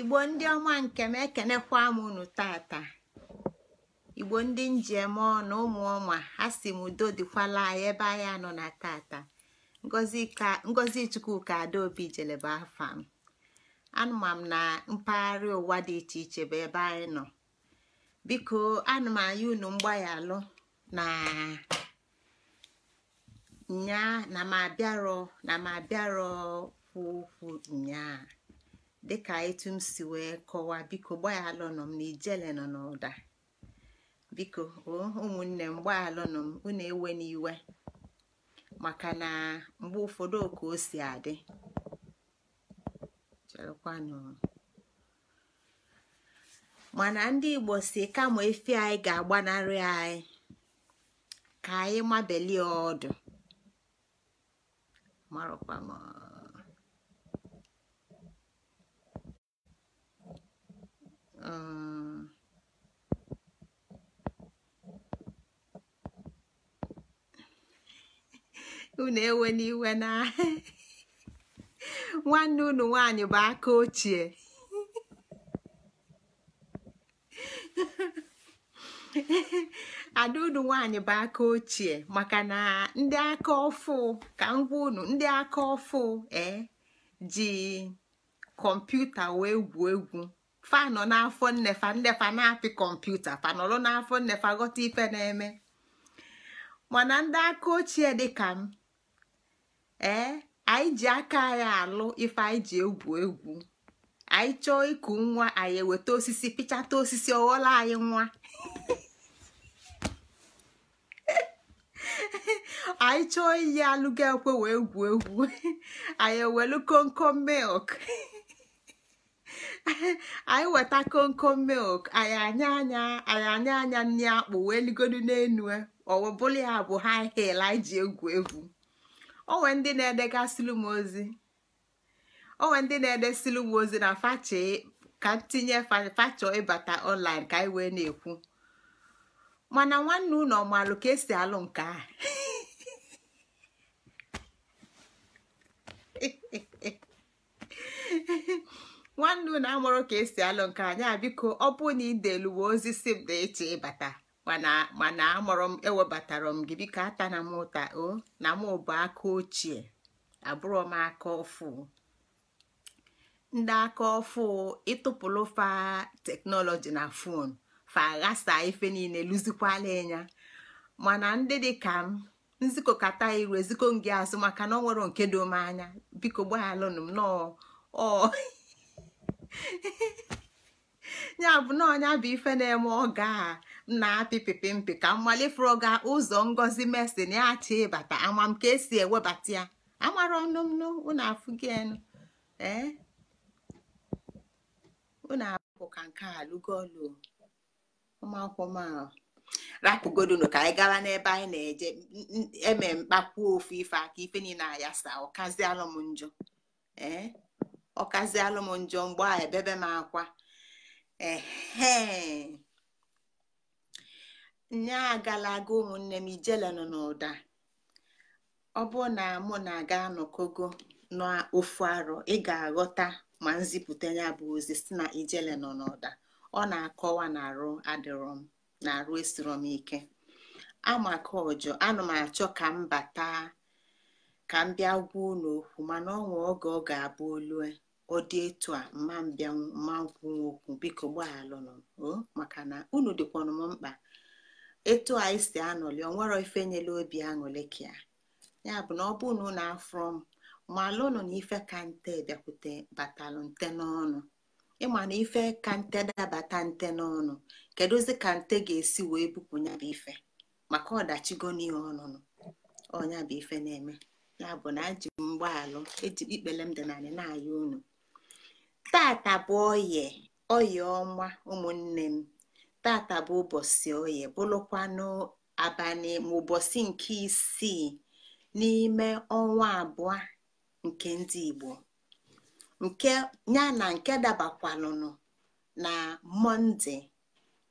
igbo ndị ọma nke m ekenekwa m unu tata igbo ndị njem na ụmụ ọma ha si m udo dịkwala anyị ebe anyị anọ na tata ngozi chukwuka adaobi jeleba afa m anụma m na mpaghara ụwa dị iche iche bụ ebe anyị nọ biko anụ unu mgbaghaalụ na nyaa na m abịarọ na m abịarọ kwu okwu nyaa dịka etu m si wee kọwaa biko gbaghalụnụ m na nọ n'ụda biko ụmụnne m gbaghalụnụ m unu ewe n'iwe maka na mgbe ụfọdụ oka o si adị mana ndị igbo si kama efi anyị ga-agbanarị anyị ka anyị mabelie ọdụ um, unu ewe n'iwe na nwanne unu nwanyị bụ aka ochie ada unu nwanyị bụ aka ochie maka na ndị aka ọfụ ka ngwa unu ndị aka ọfụ ee eh, ji kọmputa wee gwuo egwu fanọ n'afọ nnefa nnefa na-apị kọmputa fanọlụ n'afọ nnefa ghọta ife na-eme mana ndị aka ochie dịka m ee anyị ji aka anyị alụ ife anyị ji egwu egwu anyị chọọ ịkụ nwa anyị eweta osisi pịchata osisi ọghọla anyị nwa anyị chọọ iyi alụga ekwe wee egwu egwu anyị ewelu komkom milk anyị weta konko milk anyị anya anya anyị anya anya nri akpụ wee ligodu n'enu e. ọwụbụla ya bụ high heel anyị ji egwu egwu onwe ndị na-edegasịlụ m ozi onwe ndị na-edesilụ m ozi na ka ntinye fachọ ịbata online ka anyị wee na-ekwu mana nwanne unu ọ ka esi alụ nke a nwanne unu amụrụ ka esi alụ nke anya biko ọ bụ na ideluwe ozi si m na eche ịbata mana amụrụ m ewebatara m gị biko na m ụta o na m bụ aka ochie abụrụ m aka ọfụ ndị aka ọfụ ịtụpụrụ fa teknọlọji na fon fa ghasa ife niile lụzikwala ịnya mana ndị dị ka m nzikọkata iru eziko gị azụ maka na ọ nwere nke dom anya biko gbaghalụnụ m nọọ ya bụ na ọnya bụ ife na-eme oge a na-apịpịpị mpị ka mmalifuru ga ụzọ ngozi mesin ya chi ịbata amam ka esi ewebata ya amara ọnụ m unu afụghị enu ee unu abụ ka nke a lụgolu ụmụakwụkwọ m ahụ rapụgodunu ka anyị gara n'ebe anyị na-eje eme mkpakwuo ofu ife aka ife niile ayasa ọkazialụ m njọ ee ọkazialụ m njọ mgbe a ebebe m akwa ehe nya agala aga ụmụnne m ijele nọ n'ụda ọ bụ na mụ na aga anọkogo n'ofu arọ ị ga-aghọta ma nzipụta ya bụ ozi si na ijele nọ n'ụda ọ na-akọwa na arụ adịrọ m na arụ esiro m ike amaka ọjọ anụ m achọ ka m bata ka m bịa gwuo n'okwu mana ọ nwee oge ọ ga-abụ olue ọ dị etu a mma mbịa mma nkwuwa okwu biko gbaghalụnụ um, maka na unu dịkwanụ m mkpa etu anyị si anọli ọ nwere ife nyela obi aṅụlị ka ya bụ na ọ bụrụ na afọ m malụnụ na ife ka nte bịakwute batalụ nte n'ọnụ ịma na ife ka nte dabata nte n'ọnụ kedụzi ka nte ga-esi wee bupụ bụ ife maka ọdachigo n'ihe ọnụnụ ọnya bụ ife na-eme ya bụ na ji m eji ikpele m dị nanị na-aya unu tata bụ oye oye ọma ụmụnne m tata bụ ụbọchị oye bụrụkwanụ abalị ma ụbọchị nke isii n'ime ọnwa abụọ nke ndị Igbo nke ya na nke dabakwanụnụ na Mọnde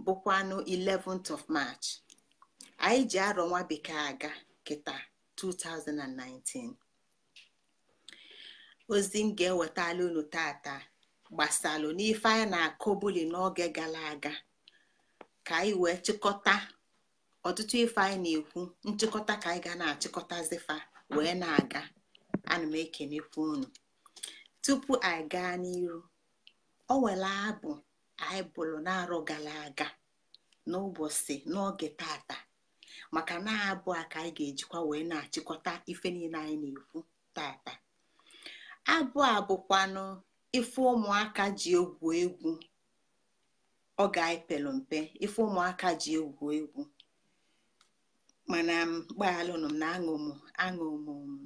bụkwanụ 11th of March anyị ji arọ nwa bekee aga kịta 2019 ozi m ga-ewetala unu tata gbasalụ n'ife anyị na-akọbuli n'oge gara aga ka anyị wee chịkọta ọtụtụ ife anyị na-ekwu nchịkọta ka anyị ga na-achịkọtazifa wee na-aga ana m ekenekwu unu tupu anyị gaa n'iru o nwere abụ anyị bụrụ na-arụ gara aga n'ụbọchị n'oge tata maka na abụ a ka anyị ga-ejikwa wee na-achịkọta ife niile anyị na-ekwu tata abụ a bụkwanụ ife ụmụaka ji egwu egwu ọ ga-epelu mpe ife ụmụaka ji egwu egwu mana gbaghalụnụ m na ụmụ m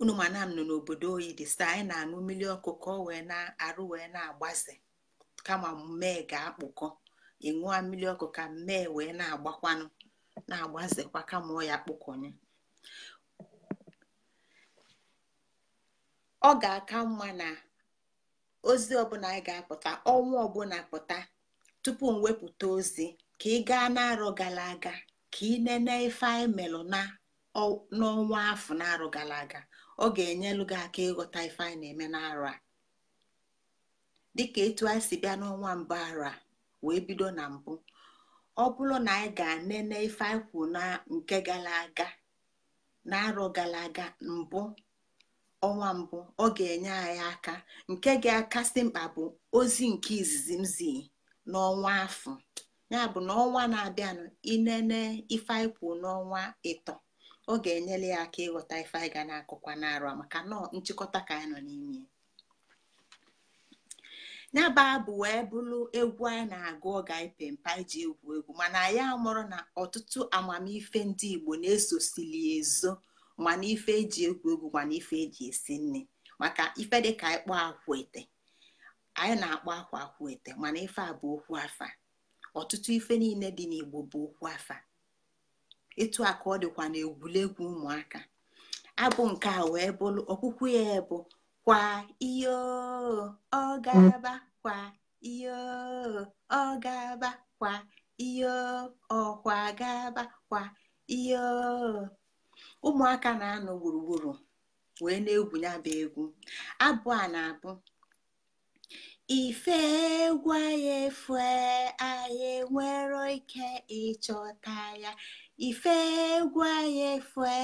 unu mana m nọ n'obodo oyi dị sta anyị na-aṅụ mmiri ọkụ ka ọ wee na-arụ wee na-agbaze kama mmee ga-akpụkọ ịṅụọ mmiri ọkụ ka mmee wee na-agbakwanụ na-agbazekwa kama ọya ya ọ ga-aka mma na ozi ọbụla anyị ga-apụta ọnwa ọbụla pụta tupu m wepụta ozi ka ị gaa n'arọ gara aga ka ị nene ife anyị melụ n'ọnwa afọ n'arọ gara aga ọ ga enyelụ gị aka ịghọta ife anyị na-eme n'arọ a dịka etu anyị si bịa n'ọnwa mbụ arọ a wee bido na mbụ ọ bụrụ na anyị ga-anene ife anyị kwụ na nke gara aga n'arọ gara aga mbụ ọnwa mbụ ọ ga-enye anyị aka nke ga-akasị mkpa bụ ozi nke izizi mzi n'ọnwa afọ ya bụ na na-abịanụ ịnene ife anyị n'ọnwa ịtọ ọ ga-enyere ya aka ịghọta ife anyị ga na-akụkwa maka nọọ nchịkọta ka anyị nọ n'ime ya bụ wee bụrụ egwu anyị na-agụ ọga ga mpa iji egwu egwu mana anyị amụrụ na ọtụtụ amamife ndị Igbo na-esosili ezo mana ife eji egwu egwu mana ife eji esi nne maka ife dịka ịkpọ ete, anyị na-akpọ akwa ete mana ife a bụ okwu afa ọtụtụ ife niile dị n'igbo bụ okwu afa Ịtụ akụ ọ dịkwa na egwuregwu ụmụaka abụ nke a wee bụrụ ọkwụkwụ ya bụ kwa iyo ọ gaba kwa iyo ọ gaba kwa iyo ọkwa ga kwa iyo ụmụaka na-anọ gburugburu wee na-egwu ya bụ egwu abụ a na-abụ ife egwu anyị efue anyị nwere ike ịchọta ya ife egwu anyị efue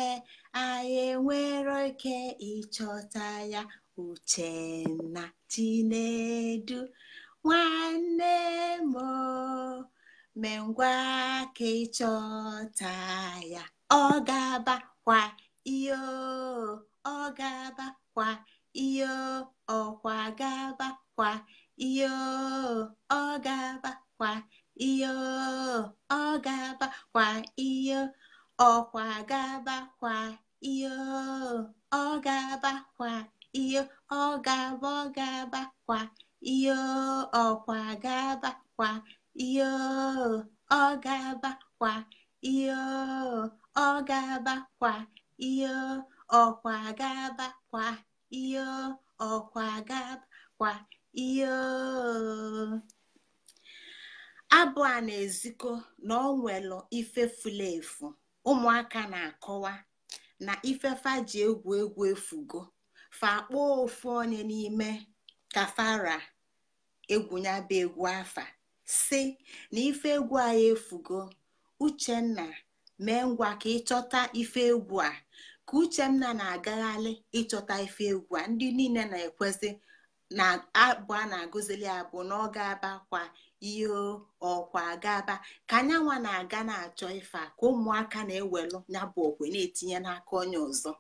anyị ike ịchọta ya uchenna chinedu nwanne m mengwa ka ịchọta ya ọ ga-abakwa iyo ọ ga-abakwa iyo ọkwa ga-abakwa iyo ọ ga-abakwa iyo ọ ga-abakwa iyo ọkwa ga-abakwa iyo ọ ga-abakwa iyo ọ ga-aba ọ ga-abakwa iyo ọkwa ga-abakwa iyo ọ ga-abakwa iyo ọ ga kwa ihe ọkwa ga kwa ihe ọkwa ga kwa ihe abụ a na-ezikọ na ọ nwelụ ife efu ụmụaka na-akọwa na ifefa ji egwu egwu efugo fa kpọọ ofu onye n'ime kafara egwu bụ egwu afa si na ife egwu anyị efugo uchenna mee ngwa ka ịchọta ife egwu a ka uchenna na-agagharị ịchọta ife egwu a ndị niile na-ekwezi na abụ a na-agụzili abụ na ọ ga-aba kwa ihe ọkwa gaba ka anyanwa na-aga na-achọ ife a ka ụmụaka na ewelụ ya okwe na-etinye n'aka onye ọzọ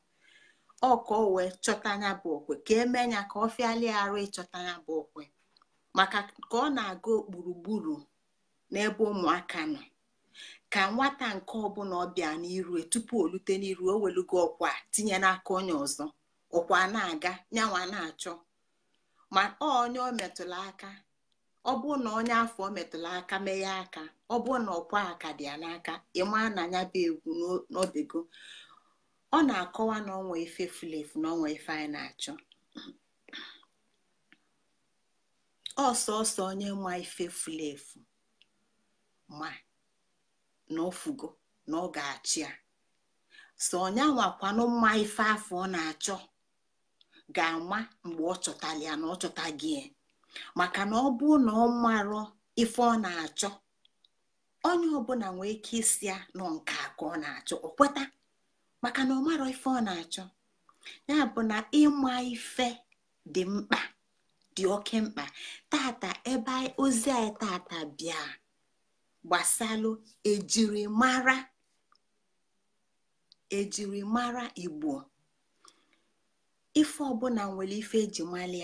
ọkọ wee chọta ya bụ okwe ka emee ya ka ọ fịali arụ ịchọta ya bụ okwe maka ka ọ na-aga gburugburu n'ebe ụmụaka nọ ka nwata nke ọbụla ọbịa n'iru e, tupu o lute n'iru o welugo ọkwa tinye n'aka onye ọzọ ọkwa na-aga nyanwa na-achọ ma onye o aka ọ bụ na onye afọ metụla aka meghe aka ọ bụ na ọkwa aka dị ya n'aka ịma na anya bụ egwu n'obego ọ na-akọwa na ọnwa ife fulefu na ọnwa ife anyị na-achọ ọsọọsọ onye nwa ife fulefu ma na ofugo na ọ ga-achị ya onye ọnyawakwanụ mma ife afọ ọ na-achọ ga-ama mgbe ọ chọtara ya na ọ chọta gị maka na ọ bụ na ọ marọ ife ọ na-achọ onye ọbụla nwee ike isi ya nọ nke a ọ na-achọ ọ kweta maka na ọ marọ ife ọ na-achọ ya bụ na ịma ife dị mkpa dị oke mkpa tata ebe ozi anyị tata bịa gbasalụ ejirimara ejirimara igbo ife ọbụla nwere ife eji mali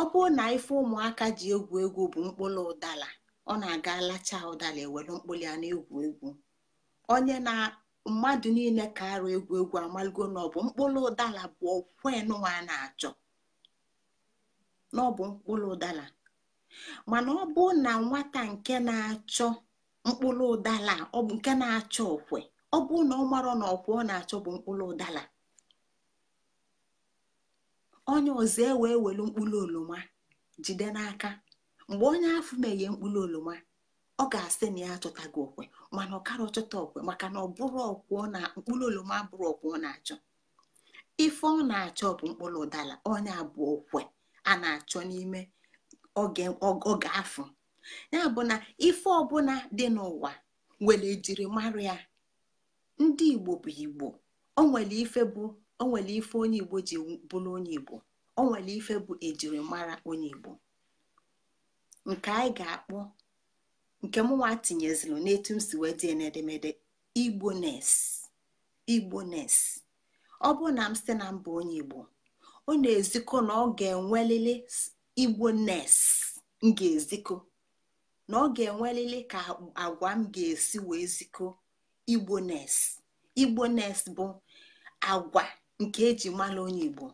ọ bụrụ na ife ụmụaka ji egwu egwu bụ mkpụrụ ụdala ọ na-aga lacha ụdala ewere mkpụrụ ya na-egwu egwu onye na mmadụ niile ka arụ egwu egwu amaligo na bụ mkpụrụ ụdala bụ okwenwa na-achọ na ọbụ mkpụrụ ụdala mana ọ bụ na nwata nke na-achọ mkpụrụ ụdala ọ bụ nke na-achọ okwe ọ bụ na ọ marọ na ọkwa ọ na-achọ bụ mkpụrụ ụdala onye ọzọ ewe welu mkpụrụ oroma jide n'aka mgbe onye afọ meghe mkpụrụ oroma ọ ga-asị na ya achọtaghị okwe mana ọ kara ọchọta okwe maka na ọ bụrụ ọkwụ na mkpụrụ oroma bụrụ ọkwụ ọ na-achọ ife ọ na-achọ bụ mkpụrụ ụdala onye abụọ okwe a na-achọ n'ime oge afọ ya bụ na ife ọbụla dị n'ụwa nwere ejirimara ya ndị igbo bụ igbo onwere ife bụ onwere ife onye igbo ji bụrụ onye igbo onwere ife bụ ejirimara onye igbo nke anyị ga-akpọ nke mụnwa tinyeziri n'etu m si wee dị n'edemede igbones igbones ọ bụ na m site na mba onye igbo ọ na-ezikọ na ọ ga-enwelili igbo m ga eziko na ọ ga-enwelili ka agwa m ga-esi wee ziko. igbo nes igbo nes bụ agwa nke eji mara onye igbo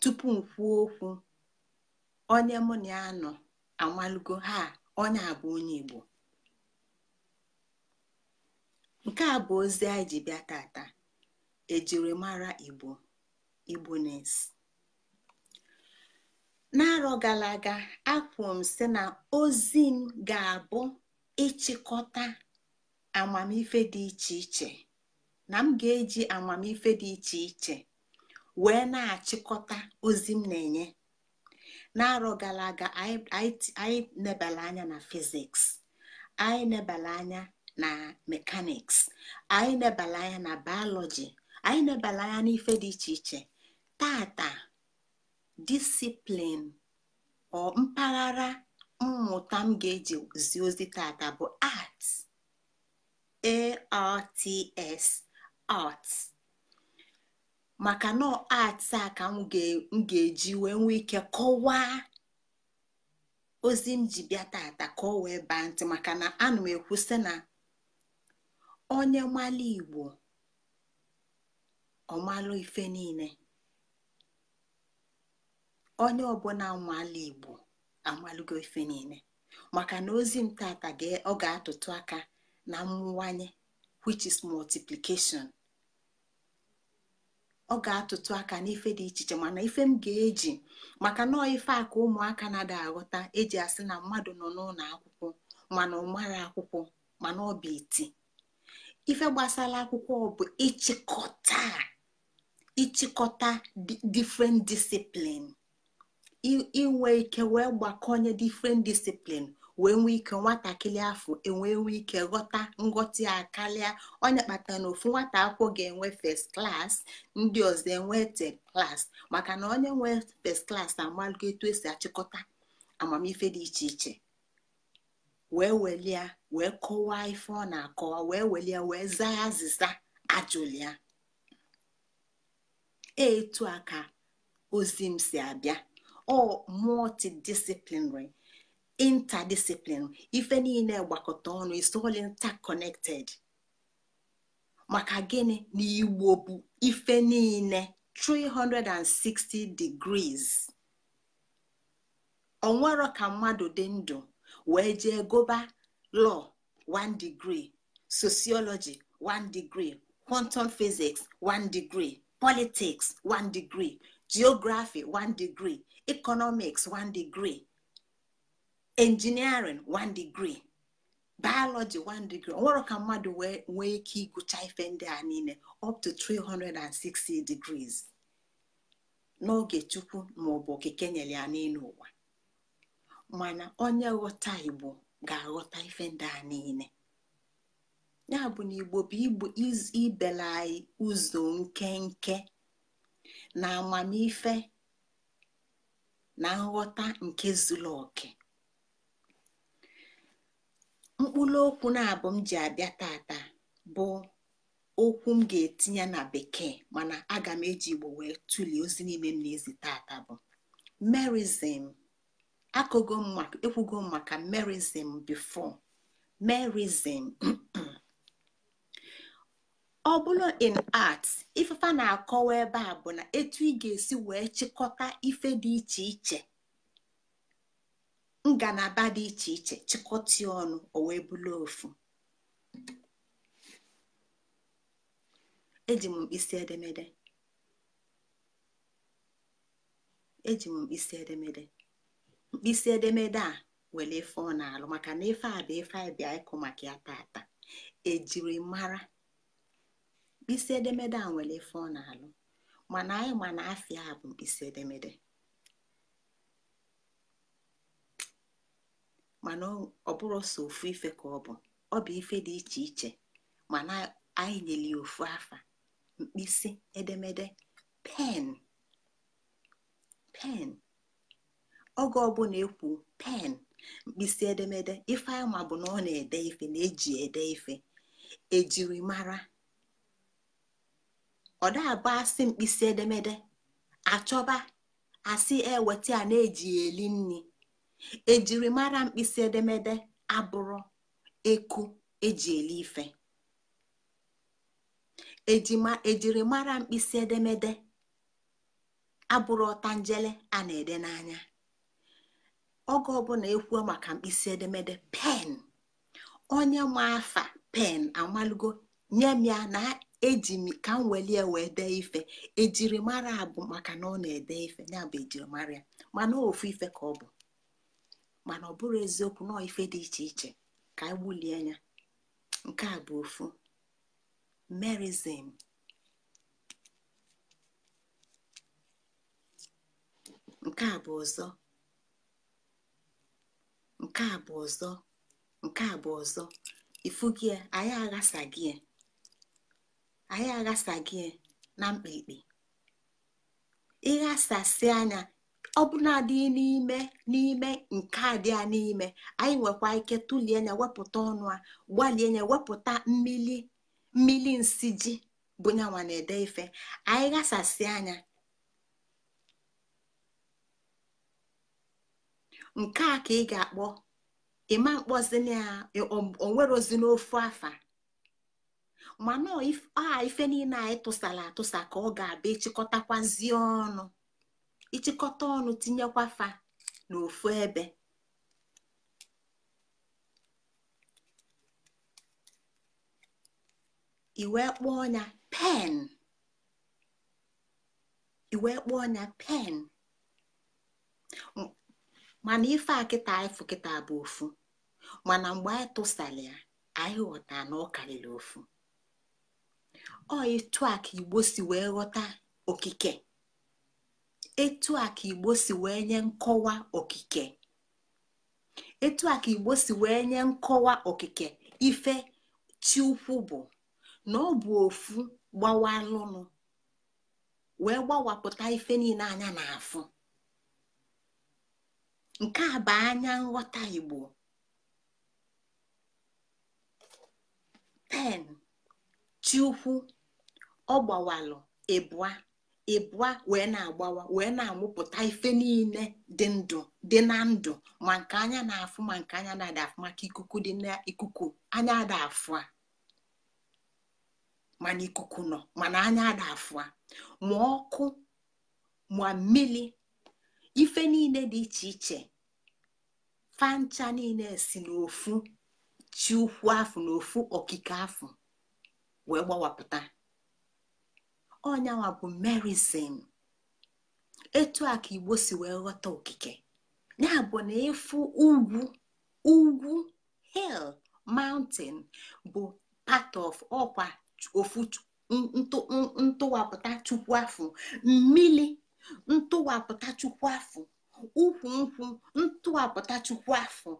tupu m kwuo okwu onye mụ na ya nọ ha onye a bụ onye igbo nke a bụ ozi anyị ji bịa tata ejirimara igbo igbo nes n'arọ gara aga akwụrụ m sị na ozi m ga-abụ ịchịkọta amamife dị iche iche na m ga-eji amamife dị iche iche wee na-achịkọta ozi m na-enye n'arọ gara aga anyị nebala anya na fiziks anyị nebala anya na mekaniks anyị nebala anya na bayọlọji anyị nebala anya n'ife dị iche iche tata disiplin mpaghara mmụta m ga-eji zi ozi tata bụ arts arts art maka na art a ka m ga-eji wee nwee ike kọwaa ozi m ji bịa tata ka ọ wee baa ntị maka na ana m ekwusị na onye mmalụ igbo ọmalụ ife niile onye ọbụla nwala igbo amalụgo ife niile maka na ozi m tata ọ ga-atụtụ aka na mmụwanye which is multiplication ọ ga-atụtụ aka n'ife dị iche iche mana ife m ga-eji maka nọọ ife aka ka ụmụaka na-ada aghọta eji asị na mmadụ nọ n'ụlọ akwụkwọ mana ọ akwụkwọ mana ọ bụ iti ife gbasara akwụkwọ bụ ịchịkọta ịchịkọta different discipline inwe ike wee gbakọnye different discipline wee nwee ike nwatakịrị afọ enwe nwee ike ghọta nghọta ya onye kpata na ofu nwata akwụkwọ ga-enwe first class ndị ọzọ enwe third class maka na onye nwe first class amalgo etu esi achịkọta amamife dị iche iche wee welia wee kọwaa ife ọ na-akọwa wee welie wee zaa azịza ajụlia etu a ka ozi m si abịa all multidisciplinary interdisciplinary ife niile gbakọta ọnụ isol interconected maka gịnị na igbo bụ ife niile 360 degrees onwero ka mmadụ dị ndụ wee jee goba law 1 degree sociology 1 degree quantum physics 1 degree politics 1 degree geography 1 degree economics 1 degree engineering 1 degree biology 1 degree nwere ka mmadụ nwee ike ịgụcha ife ndị a niile up to 360 degrees n'oge chukwu maọbụ okike nyere ya n'elu ụwa mana onye ghọta igbo ga-aghọta ife ndị a niile ya bụ na igbo bụ igbo ibela ụzọ nkenke na amamife na nghọta nke zuru oke mkpụrụ okwu na-abụ m ji abịa tata bụ okwu m ga-etinye na bekee mana aga m eji igbo wee tụlie ozi n'ime m na-ezi tata bụ merizim akụgo ekwugo m maka merizim bifo merizm ọ bụrụ in art ifefa na-akọwa ebe a bụ na etu ị ga-esi wee chịkọta ife dị iche iche ngalaba dị iche iche chịkọta ọnụ o wee bụrụ ofu eji m mkpịsị edemede eji mkpịsị edemede a were ife ọ na-alụ maka na ife a bụ ife anyị ịkụ maka ya tata ejiri mara mkpịsị edemede a nwere ife ọ na-alụ mana anyị ma na afịa a bụ mkpịsị edemede mana ọ bụrụ sọ ofu ife ka ọ bụ ọ bụ ife dị iche iche mana anyị nyere ya ofu afa mkpịsị edemede pen pen oge ọbụla ekwu pen mkpịsị edemede ife anyị ma bụ na ọ na-ede ife na eji ede ife ejirimara ọ na-abụ asị mkpịsị edemede achọba asị eweta a na-eji eli nri ejirimara mkpịsị edemede abụrụ eku eji eli ife ejirimara e mkpịsị edemede abụrụ ọtanjele a na-ede n'anya oge ọbụla ekwuo maka mkpịsị edemede pen onye ma afa pen amalugo nye m ya na eji m ka m welie wee dee ife ejirimara abụ maka na ọ na-ede ife ya bụ ejirimara ya mana ofu ife ka ọ bụ mana ọ bụrụ eziokwu na ife dị iche iche ka anyị gbulie ya, nke a bụ ofu merizim nke a bụ ọzọ nke a bụ ọzọ nke a bụ ọzọ ifu gị anyị aghasa anyị gị na mkpikpi ịghasasị anya ọbụnadị n'ime n'ime nke a dị a n'ime anyị nwekwa ike tụlie anya wepụta ọnụ a gbalie anya wepụta mmili mmili nsi ji bụ na-ede ife anyị ghasasị anya nke a ka ị ga-akpọ ịma mkpọzi na onwerozi n'ofu afa mana a ah, ife niile anyị tụsara atụsa ka ọ ga-abịa ịchịkọtakwazie ọnụ ịchịkọta ọnụ tinyekwa fa n'ofu ebe iwe kpọọ ọnya, pen mana ife a kịta anyị kịta bụ ofu mana mgbe anyị tụsara ya anyị ghọta na ọ karịrị ofu ọ etu a ka igbo si wee ghọta okike etu a ka igbo si wee nye nkọwa okike etu a ka igbo si wee nye nkọwa okike ife chiukwu bụ na ọ bụ ofu gbawa gbawalụnụ wee gbawapụta ife niile anya na-afụ nke a bụ anya nghọta igbo 10 chiukwu ọ gbawalụ ịbụa ịbụa wee na-agbawa wee na-amụpụta ife niile dị ndụ dị na ndụ ma nke anya na-afụ ma nke anya na-ada afụ maka ikuku dị na ikuku anya ada afụ a mana ikuku nọ mana anya ada afụ a ma ọkụ ma mmiri ife niile dị iche iche fancha niile si n'ofu chi ukwu afụ na okike afụ wee gbawapụta ọnyanwa bụ merisin etu a ka igbo si wee ghọta okike ya bụ na ịfụ ugwu ugwu hill mountain bụ part of ọkwa ofu ntụwapụta chukwu ahụ mmili ntụwapụta chukwu ahụ ukwu nkwu ntụwapụta chukwu ahụ.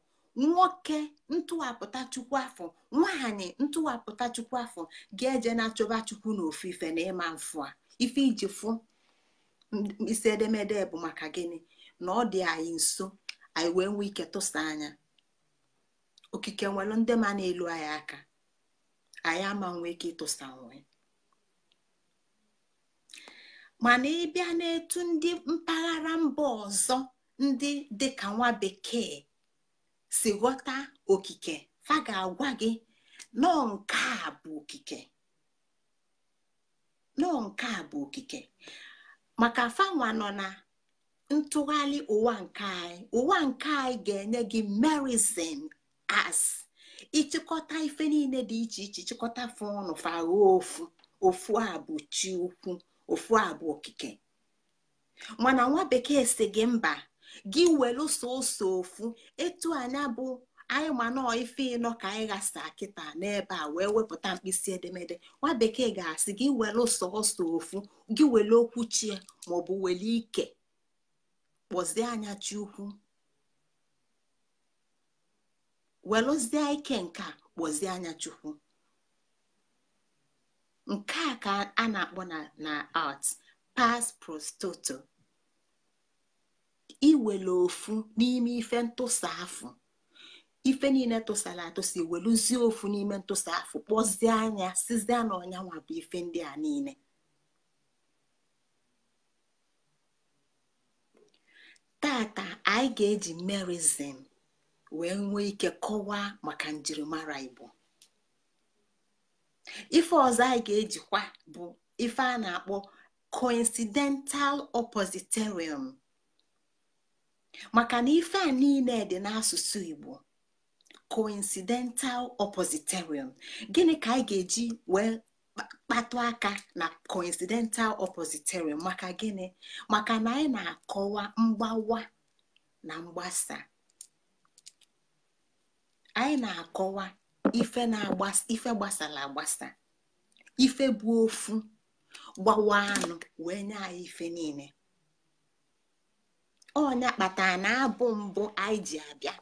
nwoke ntụwapụta chukwu afọ nwaanyị ntụwapụta chukwu afọ ga-eje na-achọba chukwu na ofufe na ịma mfụ a ife iji fụ isi edemede bụ maka gịnị na ọ dị anyị nso anyị wee nwee ike tụsa anya okike nwere ndị ma na-elu anyị aka anyị ama nwee ike ịtụsa nwe mana ịbịa n'etu ndị mpaghara mba ọzọ ndị dịka nwa bekee si ghọta okike fa ga-agwa gị nọọ nke a bụ okike nọọ nke a bụ okike maka fanwa nọ na ntụgharị ụwa nke anyị ụwa nke anyị ga-enye gị merizin as ịchịkọta ife niile dị iche iche chịkọta fụ ọnụ fagho ofu ofu a bụ chi ukwu ofu a bụ okike mana nwa bekee si gị mba gị welu ụsọ ofu etu anya bụ anyị ma nọọ ife ịnọ ka anyị ghasa kịta n'ebe a wee wepụta mkpịsị edemede nwa bekee ga-asị gị welu sọọsọ ofu gị welu okwu chie maọbụ welu ike kpọzie anya chukwu welụzie ike nke a kpọzie anya chukwu nke a ka a na-akpọ na art past prostoto iwele ofu n'ime ife ntụsa afụ ife niile tụsara atụsa iweluzie ofu n'ime ntụsa afụ kpọzie anya sizie na ọnyanwa bụ ife ndị a niile tata anyị ga-eji merizim wee nwee ike kọwaa maka njirimara igbo ife ọzọ anyị ga-ejikwa bụ ife a na-akpọ coincidental oppositorium maka na ife a niile dị n'asụsụ igbo coincidental oppositorium gịnị ka anyị ga-eji wee kpatụ aka na coincidental oppositorium maka gịnị maka na anyị na-akọwa mgbawa na mgbasa anyị na-akọwa ife na-agbasa ife gbasara agbasa ife bụ ofu gbawa anụ wee nye anyị ife niile Onya kpatara na abụ mbụ anyị ji abịa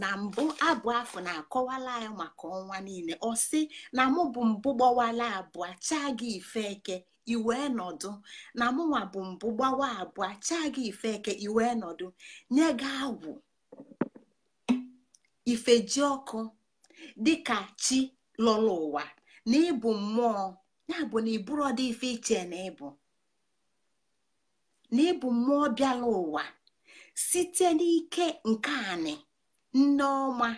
na mbụ abụ afọ na-akọwala ya maka ọnwa niile ọ sị na mụ bụ mbụ gbawala abụọ chaa gị ife eke iwe nọdụ na mụnwa bụ mbụ gbawa abụọ chaa gị ife eke iwe nọdụ nye gị agwụ ifeji ọkụ dịka chi lọrọ ụwa na ịbụ mmụọ ya bụ na iburu ọdị ife iche na ịbụ na ịbụ mmụọ bịala ụwa site n'ike nke anị nne ọma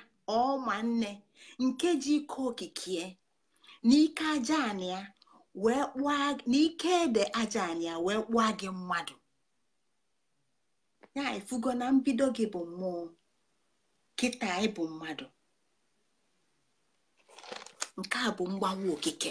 ọma nne nke ji ike okike n'ike aja wee n'ike ede aja anị wee kpụọ gị mmadụ ya ifugo na mbido gị bụ mmụọ kịta ịbụ mmadụ nke a bụ mgbanwe okike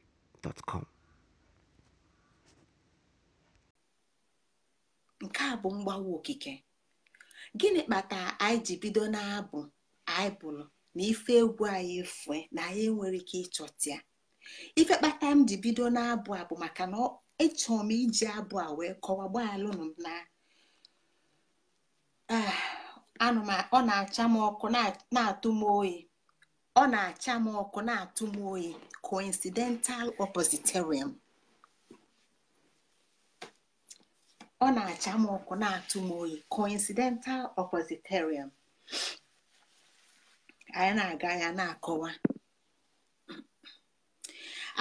nke a bụ mgbawa okike gịnị kpatara anyị ji bido na-abụ anyị na ife egwu anyị efue na anyị nwere ike ịchọta ife kpata m ji bido na-abụ abụ maka na ịchọ m iji abụ a wee kọwa gbaalụnụ na ah, anụma ọ na-acha m ọkụ na-atụ m oyi ọ na-acha m ọkụ na-atụ m oyi coincidental oppositarian ọ na anyị na-aga ya na-akọwa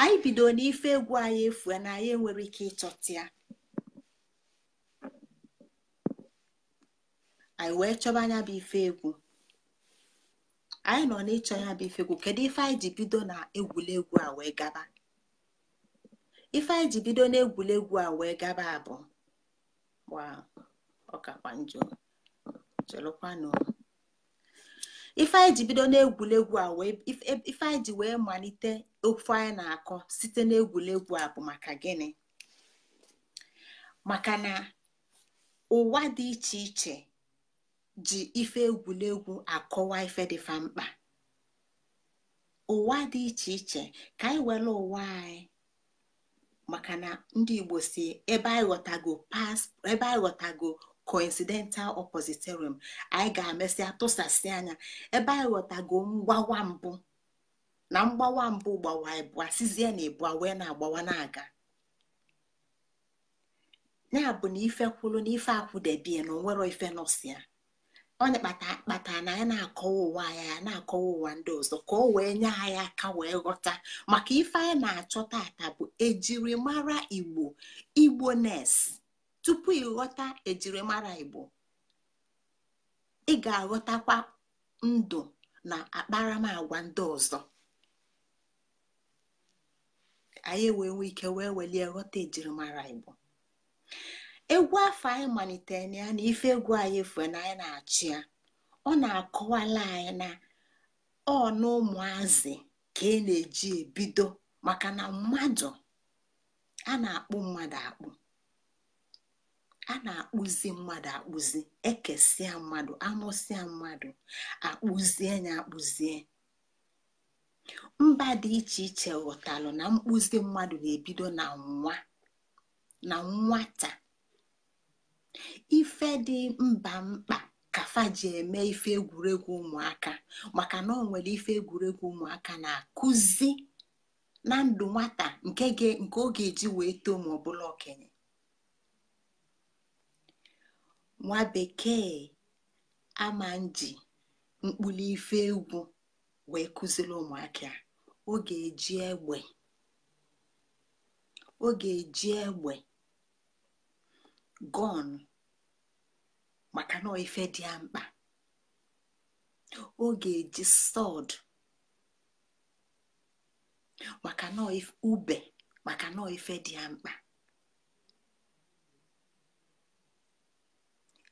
anyị bido n'ife egwu anyị efu na anyị enwere ike ịchọta ya anyị wee chọba anya bụ ife egwu anyị nọ n'ịchọ ya bụ ifegwu kedu ife anyị ji bido na egwuregwu a wee gaba ife anyị ji bido na egwuregwu a wee gaba abụ ọkakwa njọ chelụkwanụ ife anyị ji bido n'egwuregwu a wee ife anyị ji wee malite ofu anyị na-akọ site n'egwuregwu a bụ maka gịnị maka na ụwa dị iche iche ji ife egwuregwu akọwa ife dịfa mkpa ụwa dị iche iche ka anyị were ụwa anyị maka na ndị igbo si ebe anyị ghọtago ebe anyị coincidental opositorium anyị ga-emesịa tụsasị anya ebe anyị ghọtago mgbawa mbụ na mgbawa mbụ gbawa ịbụa sizie na ịbụa wee na-agbawa na-aga ya bụ na ife na ife akwụdebie na onwero ife nọsịa onye kpatara na ya na-akọwa ụwa ya na-akọwa ụwa ndị ọzọ ka o wee nye anyị aka wee ghọta maka ife anyị na-achọ tata bụ ejirimara igbo igbo nes tupu ịghọta ejirimara igbo ị ga-aghọtakwa ndụ na akparamagwa ndị ọzọ anyị wee nwee ike wee welie ghọta ejirimara igbo egwu afọ anyị malitere na ya na ife egwu anyị efu na anyị na-achị ya ọ na-akọwala anyị na ọ na ụmụazị ka ị e na-eji ebido maka na mmadụ a na-akpụ mmadụ akpụ a na-akpụzi mmadụ akpụzi ekesịa mmadụ amụsịa mmadụ akpụzie na akpụzie mba dị iche iche ghọtalụ na mkpụzi mmadụ na-ebido na nwa na nwata ife dị mba mkpa kafa ji eme ife egwuregwu ụmụaka maka na ọ nwere ife egwuregwu ụmụaka na-akụzi na ndụ nwata nke ọ ga-eji wee too ma ọbụla okenye nwa bekee ama nji ife egwu wee kụziri ụmụaka o ga-eji egbe eji egbe gọn maka na ife dị ya mkpa ọ ga-eji sọd maka na ube maka na ife dị ya mkpa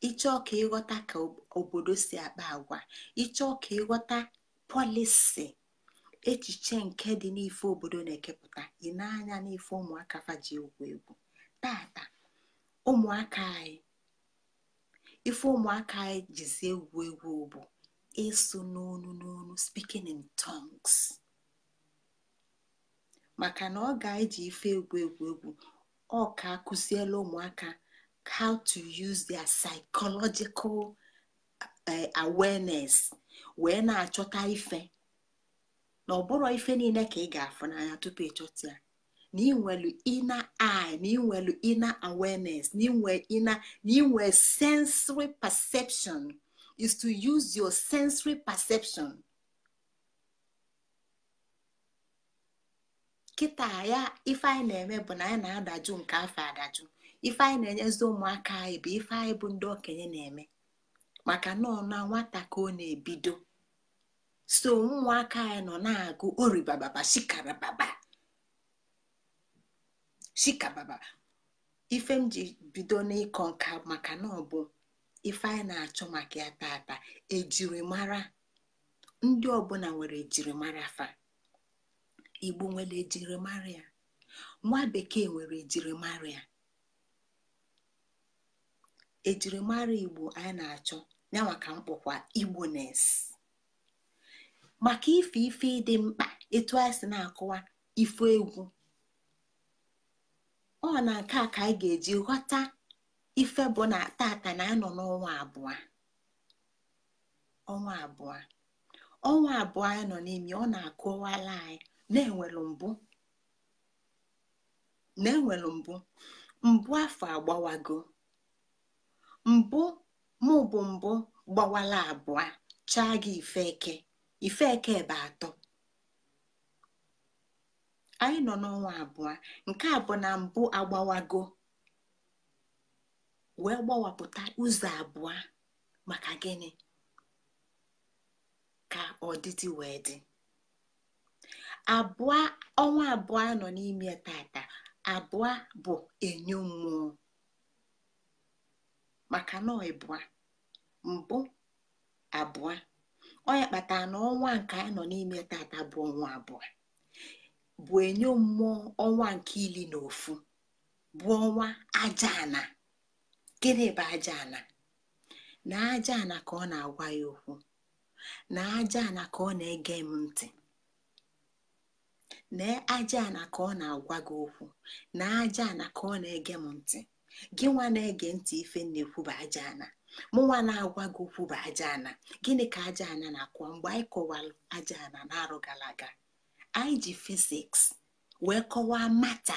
ịchọ ka ịghọta ka obodo si akpa agwa ịchọ ka ịghọta pọlịsị echiche nke dị n'ife obodo na-ekepụta ị na-anya n'ife ụmụaka faji egwu egwu tata ụmụaka anyị ife ụmụaka anyị jizi egwu egwu bụ ịsụ n'onu n'onu speaking in tongues maka na ọ ga-eji ife egwu egwu egwu ọ ka akụziela ụmụaka how to use their psychological eh, awareness wee na-achọta ife na ọ bụrụ ife niile ka ị ga-afụ n'anya tupu ịchọta ya na inwelu inner eye na inwelu inner awareness na inwe inner sensory perception is to use your sensory perception kịta ya ife anyị na-eme bụ na anyị na-adajụ nke afọ adajụ ife anyị na-enyezi ụmụaka anyị bụ ife anyị bụ ndị okenye na-eme maka nọ na nwata ka ọ na-ebido so ụmụaka anyị nọ na-agụ oribababa shikarababa shikababa ife m ji bido n'ịkọ nka maka na ọ bụ ife anyị na-achọ maka ya tata ejirimara ndị ọbụla nwere ejirimara fa igbo nwere ejirimara ya nwa bekee nwere ejirimara ya ejirimara igbo anyị na-achọ ya maka igbo igbones maka ife ife ịdị mkpa etu anyị si na-akụwa ife egwu ọ na nke a ka anyị ga-eji ghọta ife bụ na tata na anọ n'ọnwa abụọ ọnwa abụọ ọnwa abụọ anyị nọ n'imi ọ na-akọwala anyị na-enwelu mbụ na-enwelu mbụ mbụ afọ agbawago mbụ mụ bụ mbụ gbawala abụọ chaa gị ife eke ife eke ebe atọ anyị nọ n'ọnwa abụọ nke a bụ na mbụ agbawago wee gbawapụta ụzọ abụọ maka gịnị ka ọdịdị wee dị abụọ ọnwa abụọ nọ n'ime tata abụọ bụ enyo mmụọ maka na ịbụa mbụ abụọ onye kpatara na ọnwa nke anyị nọ n'ime tata bụ ọnwa abụọ bụ enyo mmụọ ọnwa nke ili na ofu bụ ọnwa aja gịnị bụ aja na aja ka ọ na-agwa ya okwu na aja ka ọ na-ege m ntị na ajaana ka ọ na-agwa gị okwu na ajaana ka ọ na-ege m ntị gị nwa na-ege ntị ife na-ekwu bụ aja ana na-agwa gị okwu bụ ajaana gịnị ka aja na-akwa mgbe anyị kọwalụ aja ana na arụ anyị ji fiziks wee kọwaa mata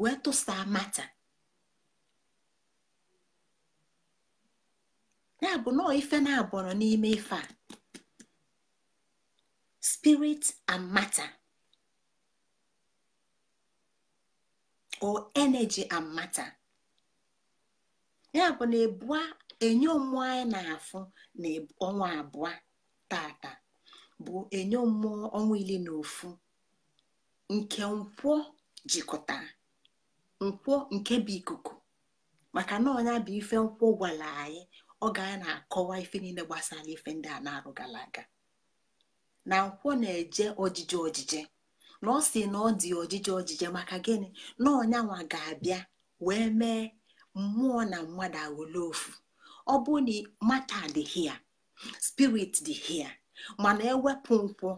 wee tụsaa mata ya bụ nọọ ife na-abọrọ n'ime ife a spirit and matter o energy and matter ya bụ na ebua enye ụmụ anyị na-afụ na ọnwa abụọ tata bụ enyo mmụọ ọnwa ili na ofu nke nkwọ jikọtara nkwọ nke bụ ikuku maka na ọnya bụ ife nkwọ gwara anyị ọ ga na-akọwa ife niile gbasara ife ndị a na-arụ gara aga na nkwọ na-eje ojije ojije na ọ sị na ọ dị ojije ojije maka gịnị na nwa ga-abịa wee mee mmụọ na mmadụ aghọla ofu ọ bụ na matter dị here spirit dị here mana ewepụ nkwụ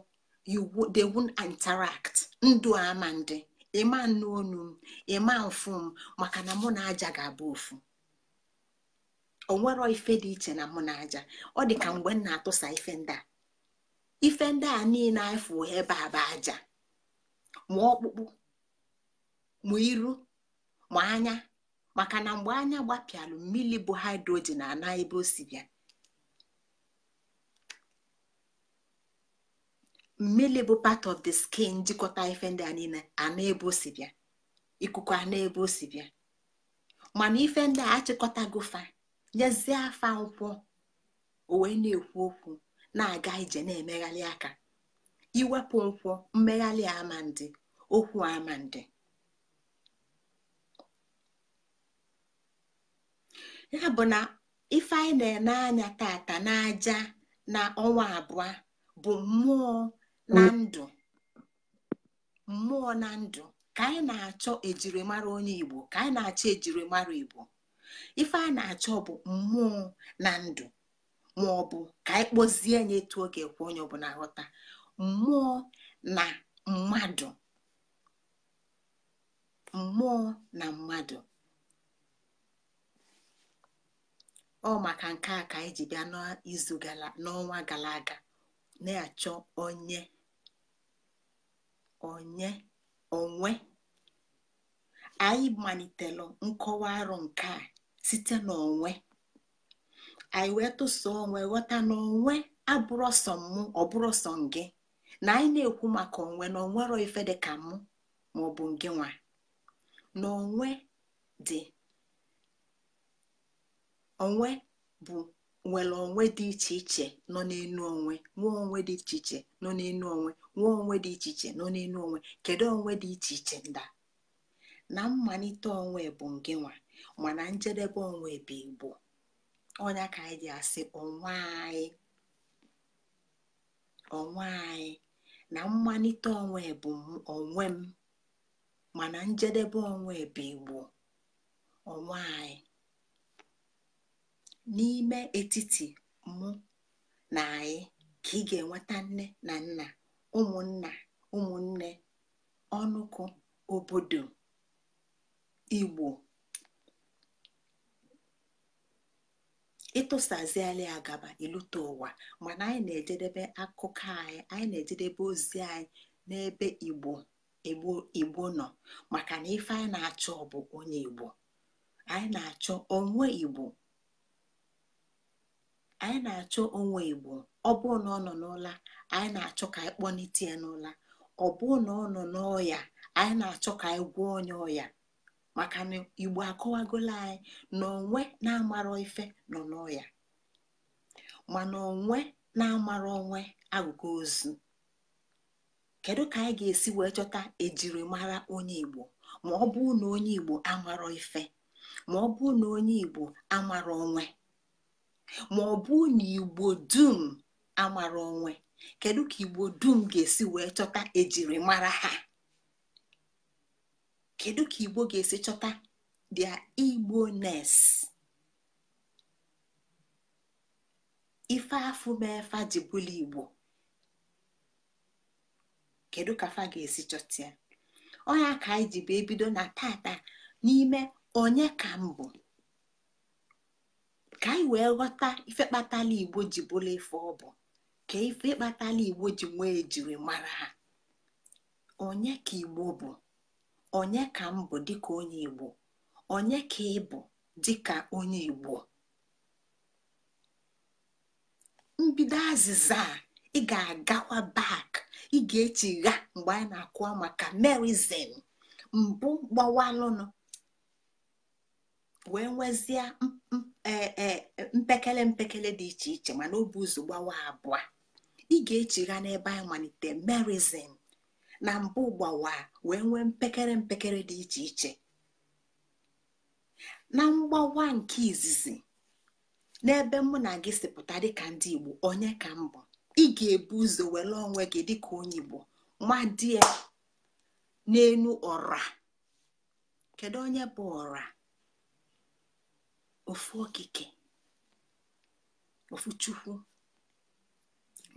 they won't interact ndụ ama ndị ịma nne onu m ịma m maka na mụ na aja ga-abụ ofu onwero ife dị iche na mụ na aja ọ dị ka mgbe m na-atụsa ife ndị a ife ndị a niile efu ebe a bụ aja ma ọkpụkpụ ma iru ma anya maka na mgbe anya gbapịalụ mmiri bụ hidrogen ana ebe o si bịa mmiri bụ part of the skin jikọta ife e ndị a niile ana ebe o si bịa ikuku ana ebe o si bịa mana ife ndị a achịkọtago fa nyezie afa nkwụ o na-ekwu okwu na-aga ije na-emegharị aka iwepụ nkwụ mmegharị amandị okwu amandị ya bụ na ife anyị na-ene anya tata n'aja na ọnwa abụọ bụ mmụọ na ndụ mmụọ na ndụ ka anyị na-achọ mara onye igbo ka anyị na-achọ mara igbo ife a na-achọ bụ mmụọ na ndụ ma ọ bụ ka anyị kpọzie nye etu oge kwa onye ọbụla ghọta mmụọ na mmadụ mmụọ na mmadụ ọ maka nke a ka anyị ji bịa n'izu n'ọnwa gara aga na-achọ onye onye onwe anyị malitelu nkọwa arụ nke a site n'onwe anyị wee tụso onwe ghọta na onwe abụrọsọ mụ ọbụrụsọ gị na anyị na-ekwu maka onwe na onwero ife dị ka mụ ma ọ bụ gị nwa na onwe dị onwe bụ nwere onwe dị iche iche nọ n'enu onwe nwee onwe dị iche iche nọ n'enu onwe nwee onwe dị iche iche nọ n'enu onwe kedu onwe dị iche iche nda na mmalite onwe bụ nke nwa mana njedebe onwe bụ igbo ọnya ka anyị ji asị onwe anyị onwe anyị na mmalite onwe bụ onwe m mana njedebe onwe bụ igbo onwe anyị n'ime etiti mụ na anyị ka ị ga-enweta nne na nna ụmụnna ụmụnne ọnụkụ obodo igbo ịtụsaziala ya gaba ịlụta ụwa mana anyị na-ejedebe akụkọ anyị anyị na-ejedebe ozi anyị n'ebe igbo igbo igbo nọ maka na ife anyị na-achọ bụ onye igbo anyị na-achọ onwe igbo anyị na-achọ onwe igbo ọ bụrụ na ọ nọ n'ụla anyị na-achọ ka anyị kpọnite ya n'ụla ọ bụrụ na ọ nọ n'ọya anyị na-achọ ka anyị gwọọ onye ọya maka na igbo akọwagola anyị na onwe na-amarọ ife nọ n'ọya mana onwe na-amara onwe agụgụ ozu kedu ka anyị ga-esi wee chọta ejirimara onye igbo ma ọ bụrụ na onye igbo amarọ ife ma ọ bụrụ na onye igbo amarọ onwe ma ọ bụ na igbo dum amara onwe kedu ka igbo dum ga-esi wee chọta ejiri mara ha kedu ka igbo ga-esi chọta dia igbo nes ife afụ mefa bụla igbo kedu ka fa ga-esi chọta ya ọnya ka anyị ji bụ ebido na tata n'ime onye ka mbụ ka anyị wee ghọta ife igbo ji bụla ife ọ bụ ka ife kpatala igbo ji nwee ejiri mara ha onye ka igbo bụ onye ka m bụ dịka onye igbo onye ka ị bụ dịka onye igbo mbido azịza a ị ga-agakwa bak ị ga-echigha mgbe anyị na-akụwa maka merizin mbụ gbawalụnụ wee nwezie e, e, mpekele mpekele dị iche iche mana ọ ụzọ gbawa abụọ ị ga-echigha n'ebe anyị malite merizin na mbụ gbawa wee nwee mpekere mpekere dị iche iche na mgbawa nke izizi n'ebe mụ na gị sipụta dịka ndị igbo onye ka mbụ bụ ị ga-ebu ụzọ were onwe gị dịka onye igbo madie n'elu ọra kedu onye bụ ọra ofu okike ofu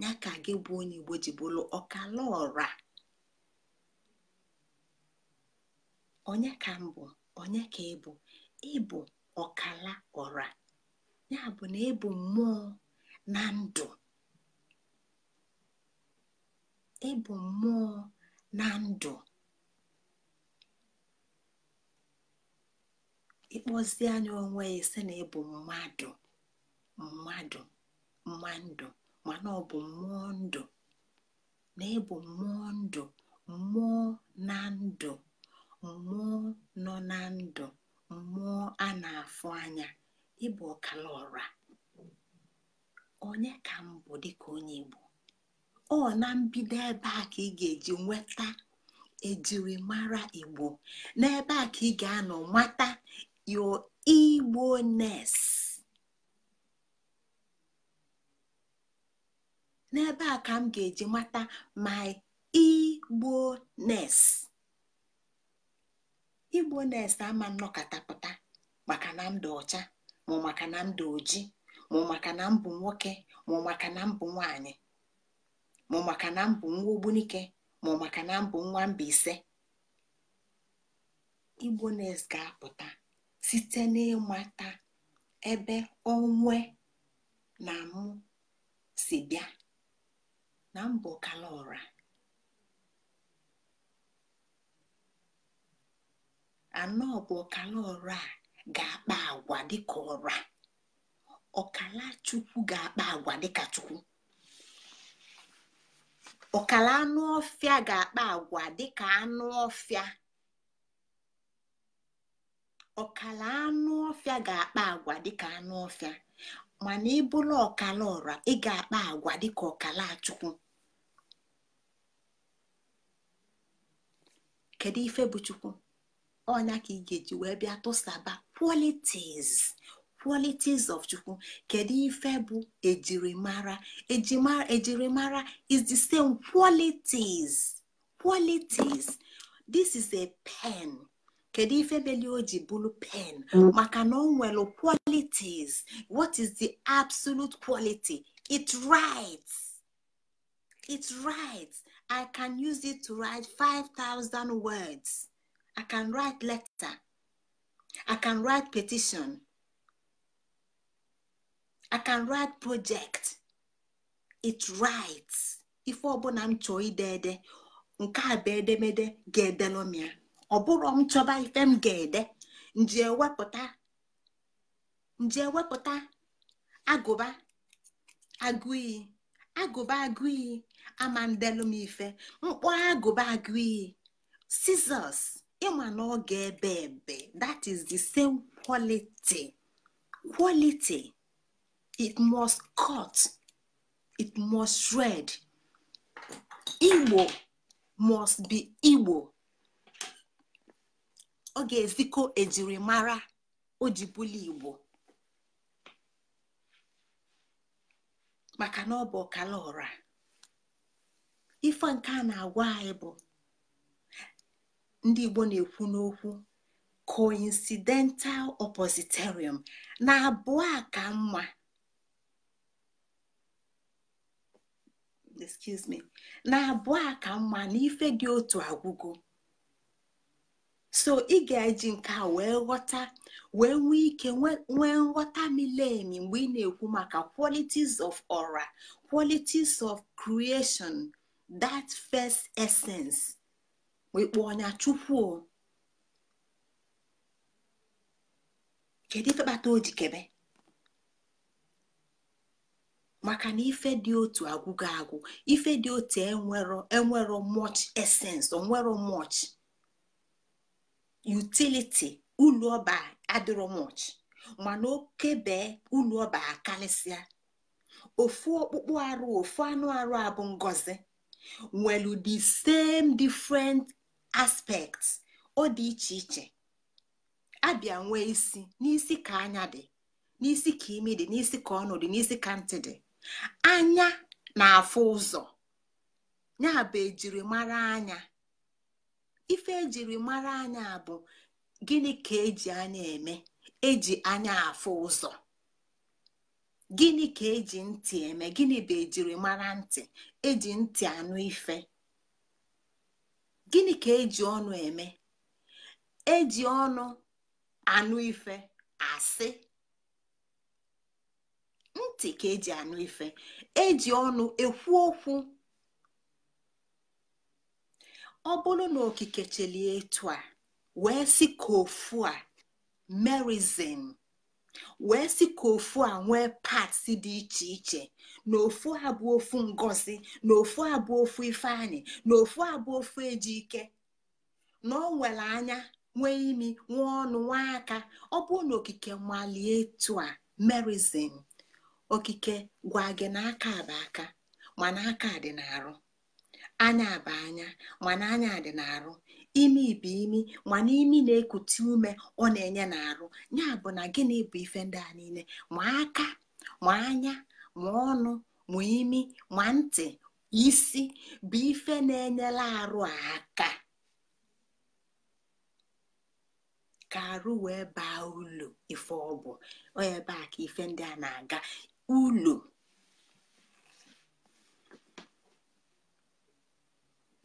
ya ka gị bụ onye igbo ji bụrụ ọkala onye ka m bụ onye ka ịbụ ịbụ ọkala ọra ya bụ na ịbụ mmụọ na ndụ ịbụ mmụọ na ndụ ịkpọzie anya onwe ya sị na ịbụ mmadụ mmadụ mmadụ mana ọ bụ mmụọ ndụ na ịbụ mmụọ ndụ mmụọ na ndụ mmụọ nọ na ndụ mmụọ a na-afụ anya ịbụ ọkala ọra onye ka mbụ bụ dịka onye Igbo ọ na mbido ebe a ka ị ga-eji nweta ejiri mara Igbo n'ebe a ka ị ga-anọ mata your igbo n'ebe a ka m ga-eji mata my Igbo-ness Igbo-ness ama nnọkọtapụta maka na m ọcha ma maka na m dị oji ma maka na m nwoke ma maka na m bụ nwanyị ma maka na m bụ nwa ogbunike ma maka na m bụ nwa mba ise ness ga-apụta site n'ịmata ebe onwe na mụ si bịa na mbụ a, anọ bụ ọkala ọrụ a ga-akpa agwa dịka ọra ọkala chukwu ga-akpa agwa dịka chukwu ọkala anụ ọfịa ga-akpa agwa dịka anụ ọfịa ọkala anụ ọfịa ga-akpa agwa dịka anụ ọfịa mana ịbụla ọkala ọra ị ga-akpa agwa dịka ọkala achukwu kedu ife bụ chukwu ọnya ka ị ga-eji wee bịa tụsaba qualities qualities of chukwu kedu ife bụ ejirimara ejirimara is the same qualities qualities this is a pen kedu ife beli o ji bụrụ pen mm. maka na ọ nwere qualities what is the absolute quality it writes it writes i can use it to write 5000 words i can write letter i can write petition i can write project it writes ife ọbụla m chọọ ide ede nke a bụ edemede ga-edelomia ọ bụrụ m chọba ife m ga-ede nji ewepụta ewepụta agụba agụiyi agụba agụiyi ama m ife mkpọ agụba agụiyi scissors ịma na ọ ga-ebe ebe that is the same quality quality it must cut it must red. igbo must be igbo ọ ga-ezikọ ejirimara mara igbo maka na ọ bụ ọkala ọra ife nke a na-agwa anyị bụ ndị igbo na-ekwu n'okwu coincidental oppositerium na abụọ a ka mma na abụọ a ka mma na ife dị otu agwụgo so ị ga-eji nke a wee ghọta wee nwee ike nwee nghọta milemi mgbe ị na-ekwu maka qualities of aura qualities of creation that first essence wekpo ọnya chukwu kedu ife kpata o kebe maka na ife dị otu agwụgo agwụ ife dị otu enwero enwero much essence onwero much utiliti ulu ọba adịrọ mana oke ulu ọba akalịsịa ofu ọkpụkpụ arụ ofu anụ arụ abụ ngozi nwelu the same different aspekt o di iche iche abịa nwee isi n'isi ka anya dị n'isi ka imi dị n'isi ka ọnụ dị n'isi ka ntị dị anya na-afụ ụzọ ya bụ ejirimara anya ife ejiri mara anya bụ gịnị ka eji anya eme eji anya afụ ụzọ gịnị ka eji ntị eme gịnị bụ ejiri mara ntị eji ntị anụ ife gịnị ka eji ọnụ eme eji ọnụ anụ ife asị ntị ka eji anụ ife eji ọnụ ekwu okwu ọ bụrụ na okike chelie etu a wee sị ka ofu a merizin wee sị ka ofu a nwee pats dị iche iche na ofu a bụ ofu ngozi na ofu a bụ ofu ifeanyị na ofu a bụ ofu ejike na ọ nwere anya nwee imi nwee ọnụ nwee aka ọ bụrụ na okike malie etu a merizin okike gwa gị na aka aka mana aka dị n'arụ anya bụ anya mana anya dị n'arụ imi bụ imi mana imi na-ekute ume ọ na-enye n'arụ ya bụ na gịnị bụ ife ndị a niile ma aka ma anya ma ọnụ ma imi ma ntị isi bụ ife na-enyela arụ aka ka arụ wee baa ụlọ ife ọ bụ ebe a ka ife ndị a na-aga ụlọ